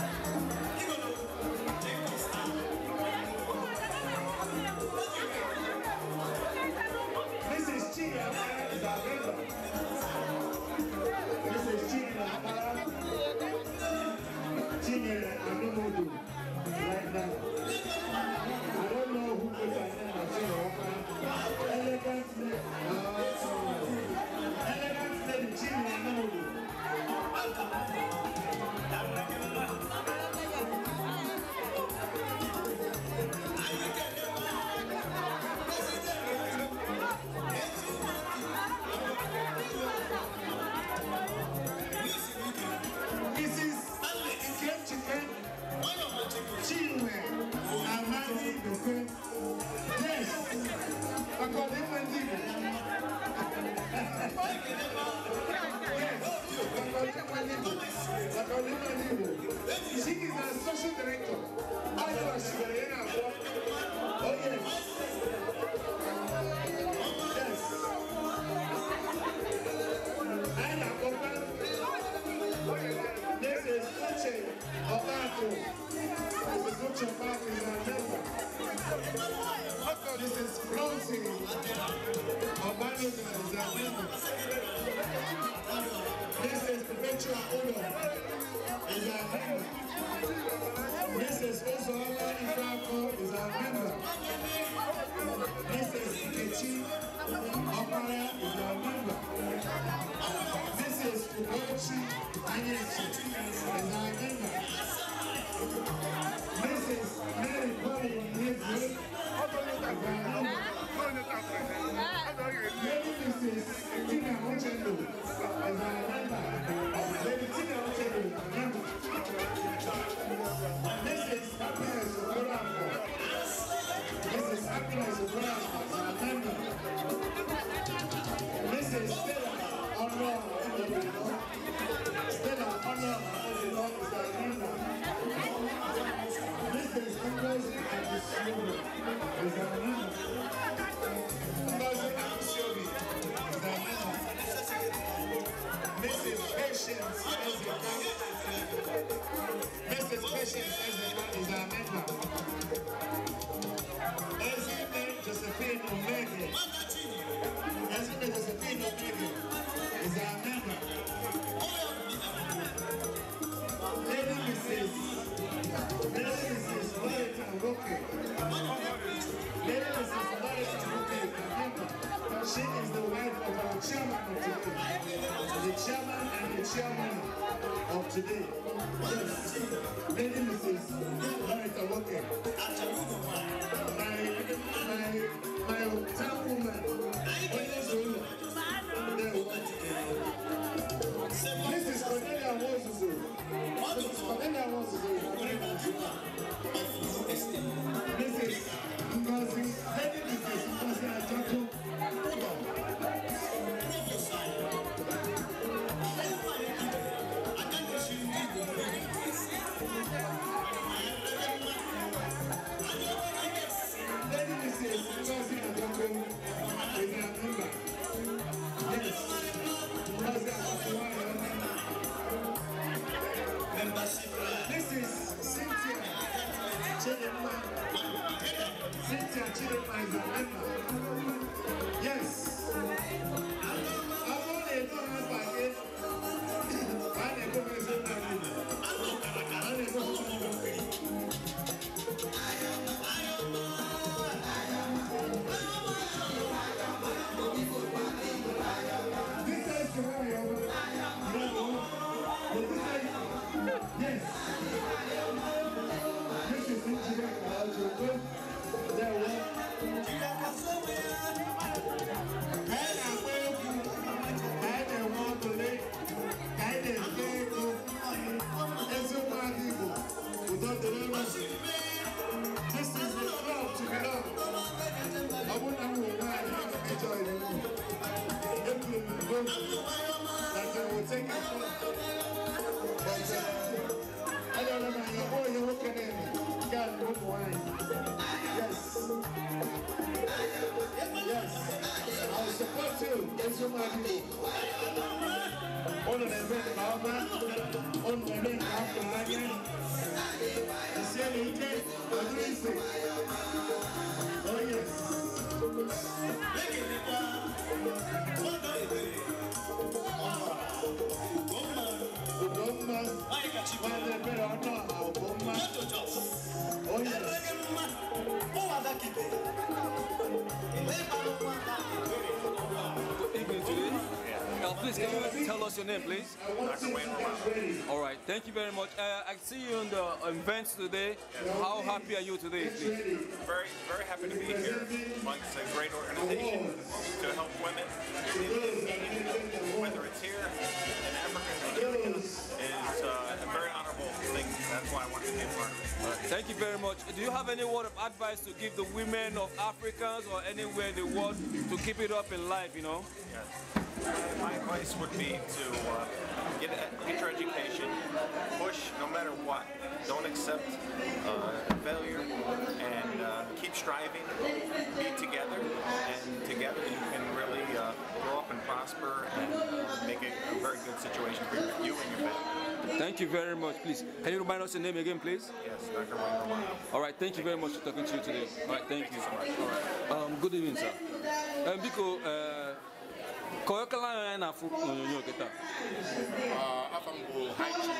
name, please? All right, thank you very much. Uh, I see you in the events today. Yes. How happy are you today, please? Very, very happy to be here amongst a great organization to help women whole thing. That's why I to be part of it. Thank you very much. Do you have any word of advice to give the women of Africans or anywhere in the world to keep it up in life, you know? Yes. My advice would be to uh, get, get your education, push no matter what. Don't accept uh, failure and uh, keep striving, be together, and together you can really uh, grow up and prosper and make it a very good situation for you and your family. Thank you very much, please. Can you remind us your name again, please? Yes, Dr. Wayne All right, thank you very much for talking to you today. All right, thank, thank you. so much. All right. Um, good evening, sir. Um, Biko, ka onye kala anya na-afụ n'onyonyo gị taa? Afọ m bụ High Chief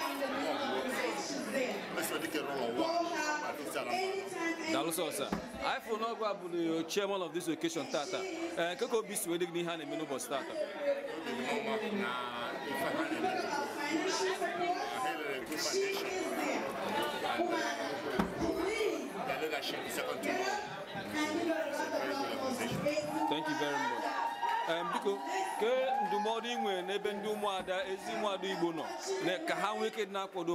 Daalụ sọ sir. Anyị fụrụ n'ọgwụ a chairman of this occasion tata. Ee, nke ka obi si wee dị a na-eme n'ụbọchị tata? Obi dị m ọma she is there. to Thank you very much. Um, biko ke ndụmọdụ ị nwere n'ebe ndị ụmụada ezi ụmụada Igbo nọ ka ha nwee ike na-akwado ị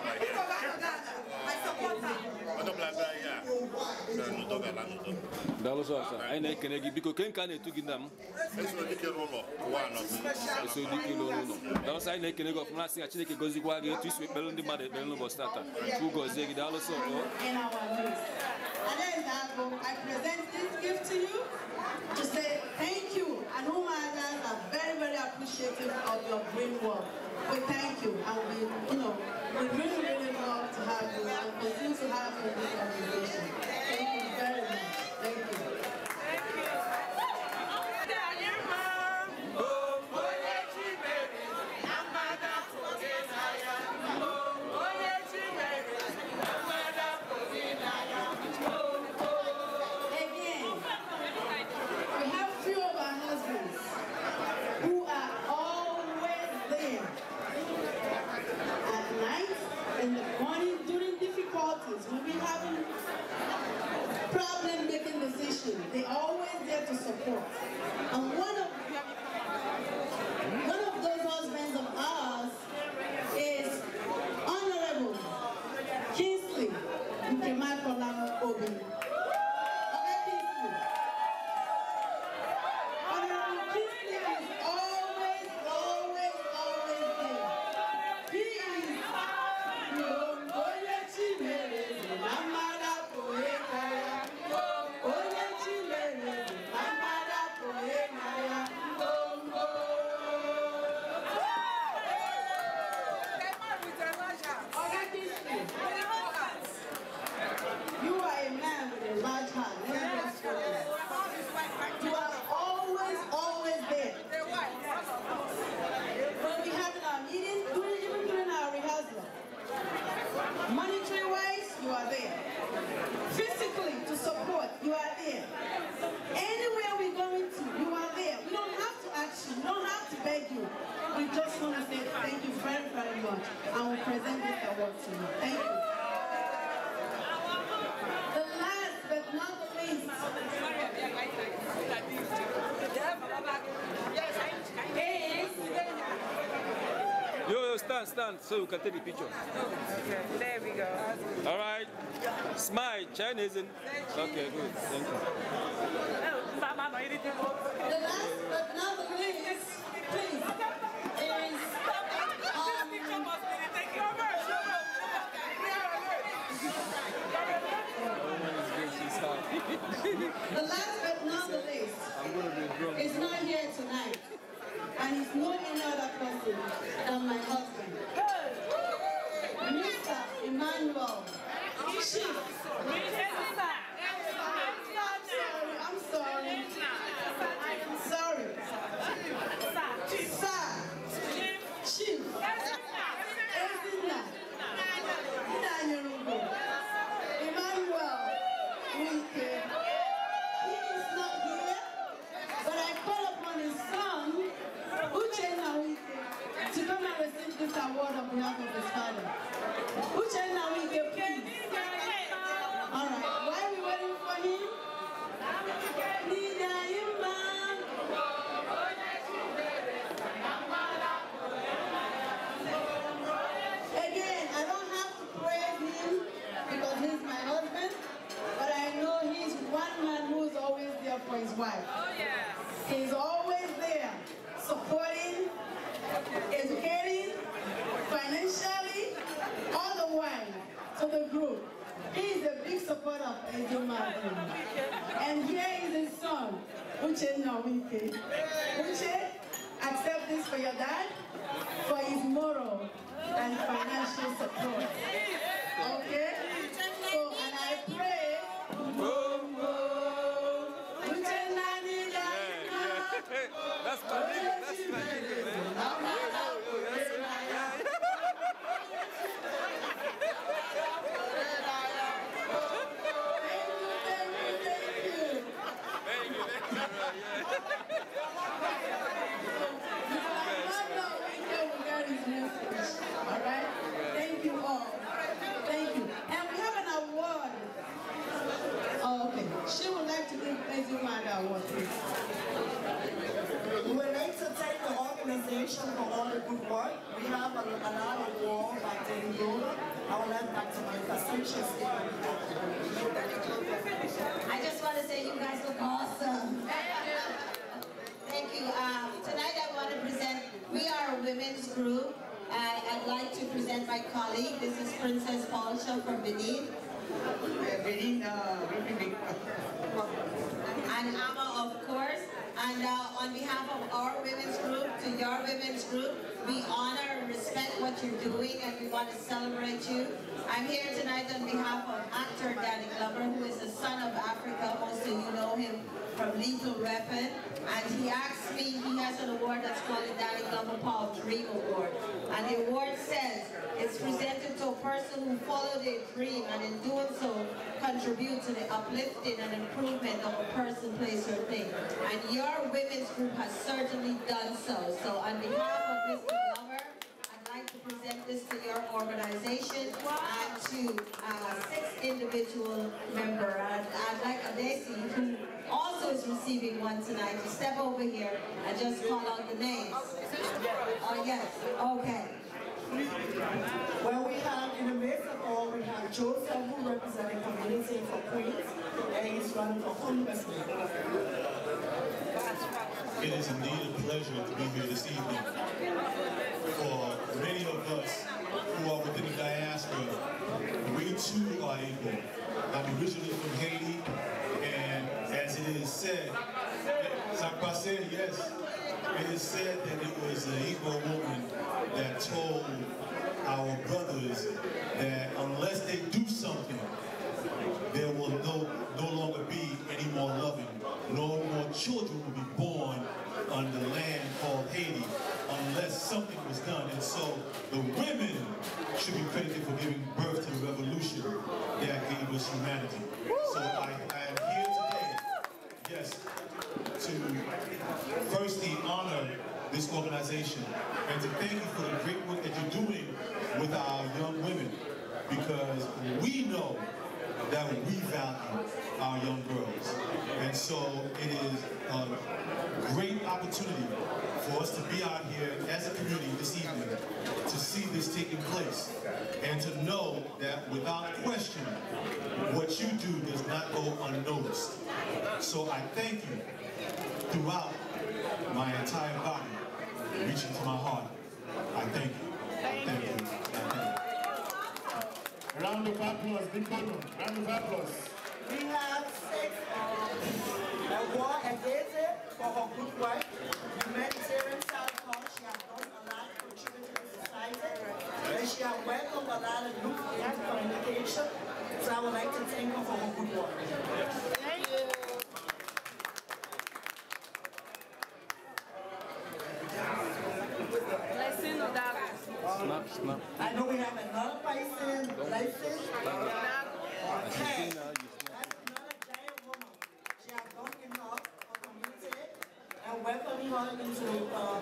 di In our And then I present this gift to you to say thank you and whom others are very very appreciative of your great work. We thank you and we you know we really, really love to have you, and continue to have you look, the picture. Okay, there we go. All right. Smile, Chinese. Okay. he asked me, he has an award that's called the Danny Paul Dream Award. And the award says, it's presented to a person who followed their dream and in doing so contribute to the uplifting and improvement of a person, place, or thing. And your women's group has certainly done so. So on behalf of Mr. Glover, present this to your organization and to uh, six individual member. I'd, I'd like Adesi, who also is receiving one tonight, to step over here and just call out the names. Oh, uh, yes. Okay. Well, we have, in the midst of all, we have Joseph, who represents the community for Queens, and he's running for Congressman. It is indeed a pleasure to be here this evening of us who are within the diaspora, we too are equal. I'm originally from Haiti, and as it is said, said, yes, it is said that it was an Igbo woman that told our brothers that unless they do something, there will no, no longer be any more loving. No more children will be born on the land called Haiti unless something was done. And so the women should be credited for giving birth to the revolution that gave us humanity. So I, I am here today, yes, to firstly honor this organization and to thank you for the great work that you're doing with our young women because we know that we value our young girls. And so it is a great opportunity for us to be out here as a community this evening to see this taking place and to know that without question, what you do does not go unnoticed. So I thank you throughout my entire body, reaching to my heart. I thank you. I thank you. thank you. Round of applause, big round of applause. We have six. The war against it for her good work, humanitarian self-help, she has done a lot to contribute to society, and she has welcomed a lot of new and communication, so I would like to thank her for her good work. Thank you. Blessing of that. Snap, snap. I know we have another person, blessing. gone into uh,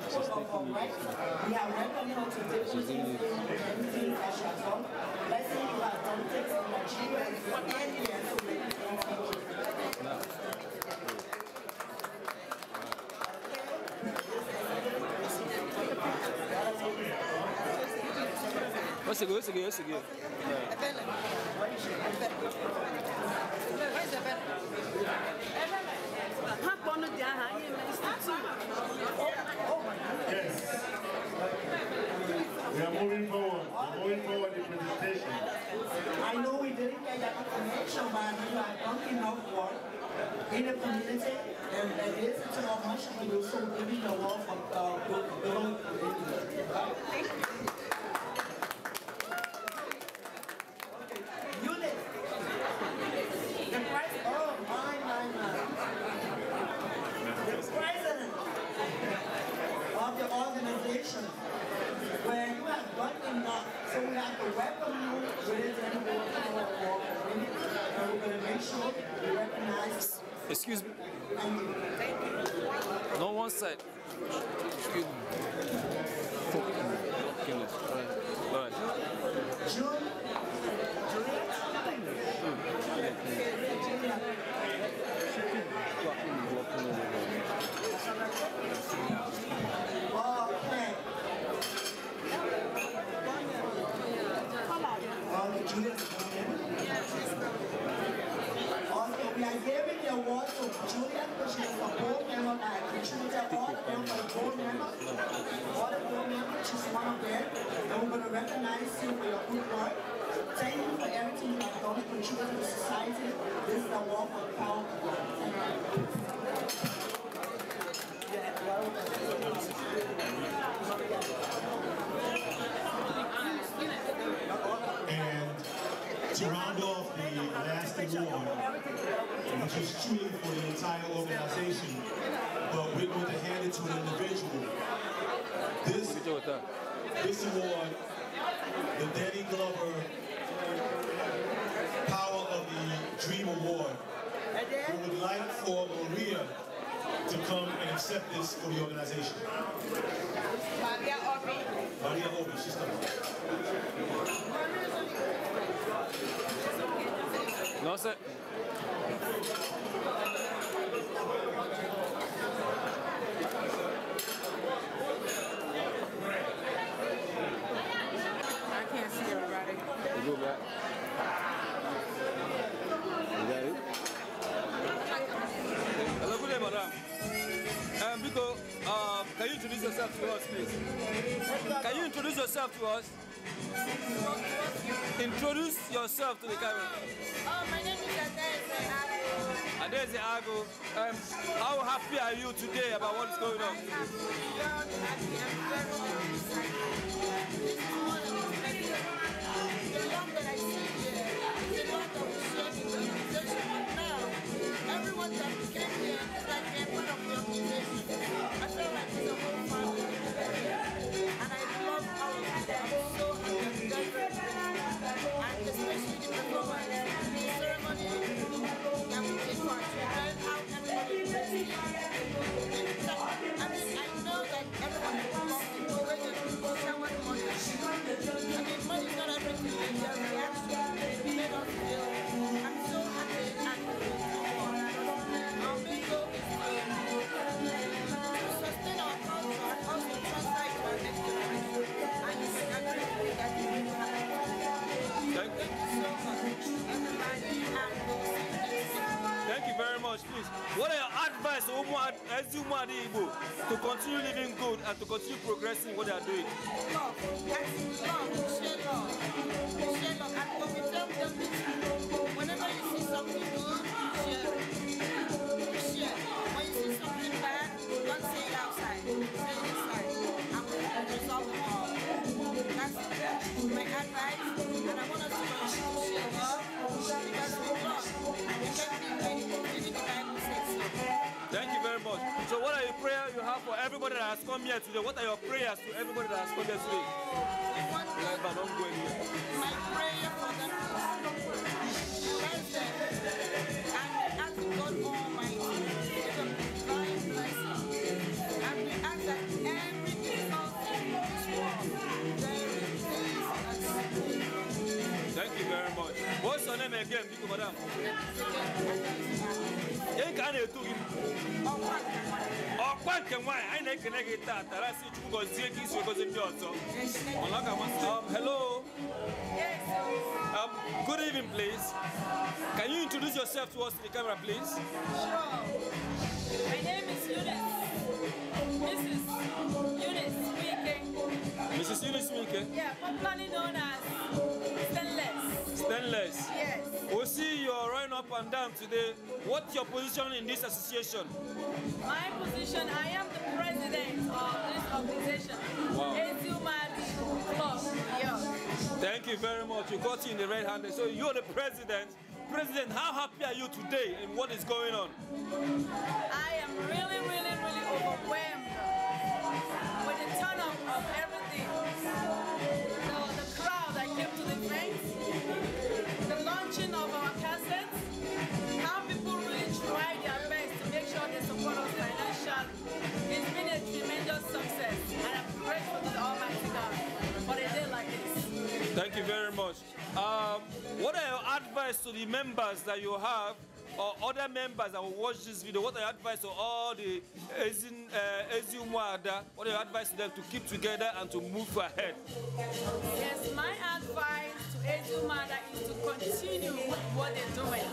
We are welcoming to in Let's see What's good? What's good? What's good? Where's moving forward, moving forward the presentation. I know we didn't get that information, but you are done enough work in the community, and there is still much to do, so we need a lot of uh, building. Right? given an individual. This, this award, the Danny Glover Power of the Dream Award, we would like for Maria to come and accept this for the organization. Maria Obi. Maria Obi, she's coming. No, sir. yourself to us. Introduce yourself to the camera. Oh, my name is Adeze Ago. Adeze Ago, um, how happy are you today about what is oh, going on? I am happy, very excited. This is one of the that I see here. organization, now everyone that came here is like of the As you are able to continue living good and to continue progressing what they are doing. whenever you see something good, much. So what are your prayers you have for everybody that has come here today? What are your prayers to everybody that has come here today? My prayer for them this world, Thank you very much. What's your name again, Madam? Ekane ọkwa um, hello um, good evening please can you introduce yourself to us in the camera please sure my name is Eunice Mrs. Eunice speaking. Mrs. Eunice speaking. yeah popularly known as Stainless Stainless yes we see you are running up and down today. What's your position in this association? My position, I am the president of this organization. Wow. Thank you very much. You got you in the red hand. So you're the president. President, how happy are you today and what is going on? I am really, really, really overwhelmed Um, what are your advice to the members that you have or other members that will watch this video? What are your advice to all the Ezu uh, What are your advice to them to keep together and to move ahead? Yes, my advice to Ezumada is to continue with what they're doing.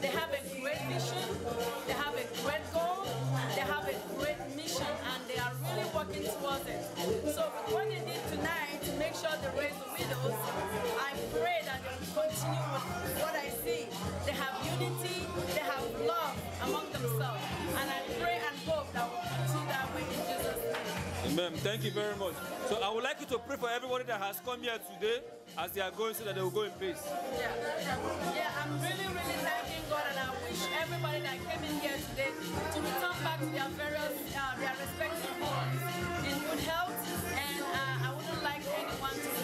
They have a great vision, they have a great goal, they have a great mission, and they are really working towards it. So what they did tonight to make sure they raise the widows, I pray continue with what I see. They have unity, they have love among themselves. And I pray and hope that we continue that way in Jesus' name. Amen. Thank you very much. So I would like you to pray for everybody that has come here today as they are going so that they will go in peace. Yeah, yeah I'm really, really thanking God and I wish everybody that came in here today to return back to their various, uh, their respective homes in good health and uh, I wouldn't like anyone to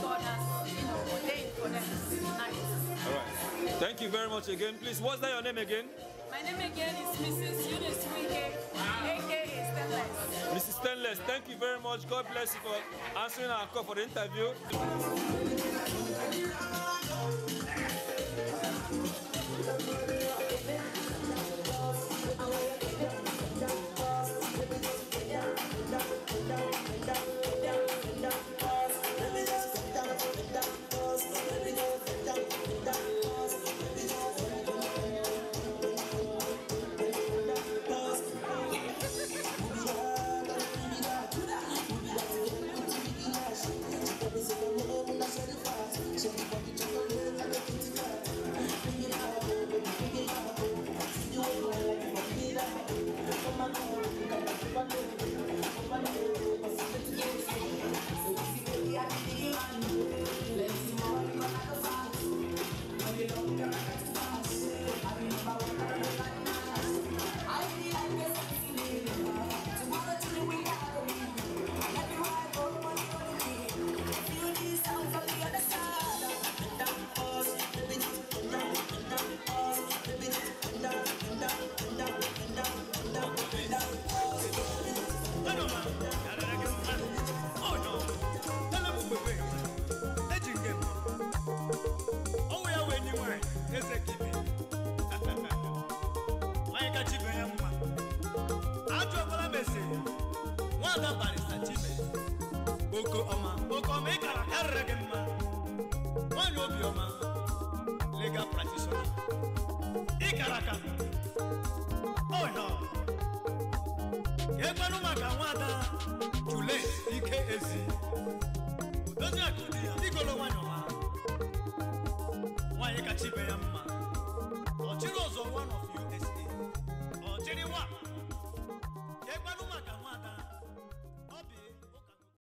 All right. Thank you very much again. Please, what's that your name again? My name again is Mrs. Eunice Wike, Mrs. Ah. Stainless, thank you very much. God bless you for answering our call for the interview.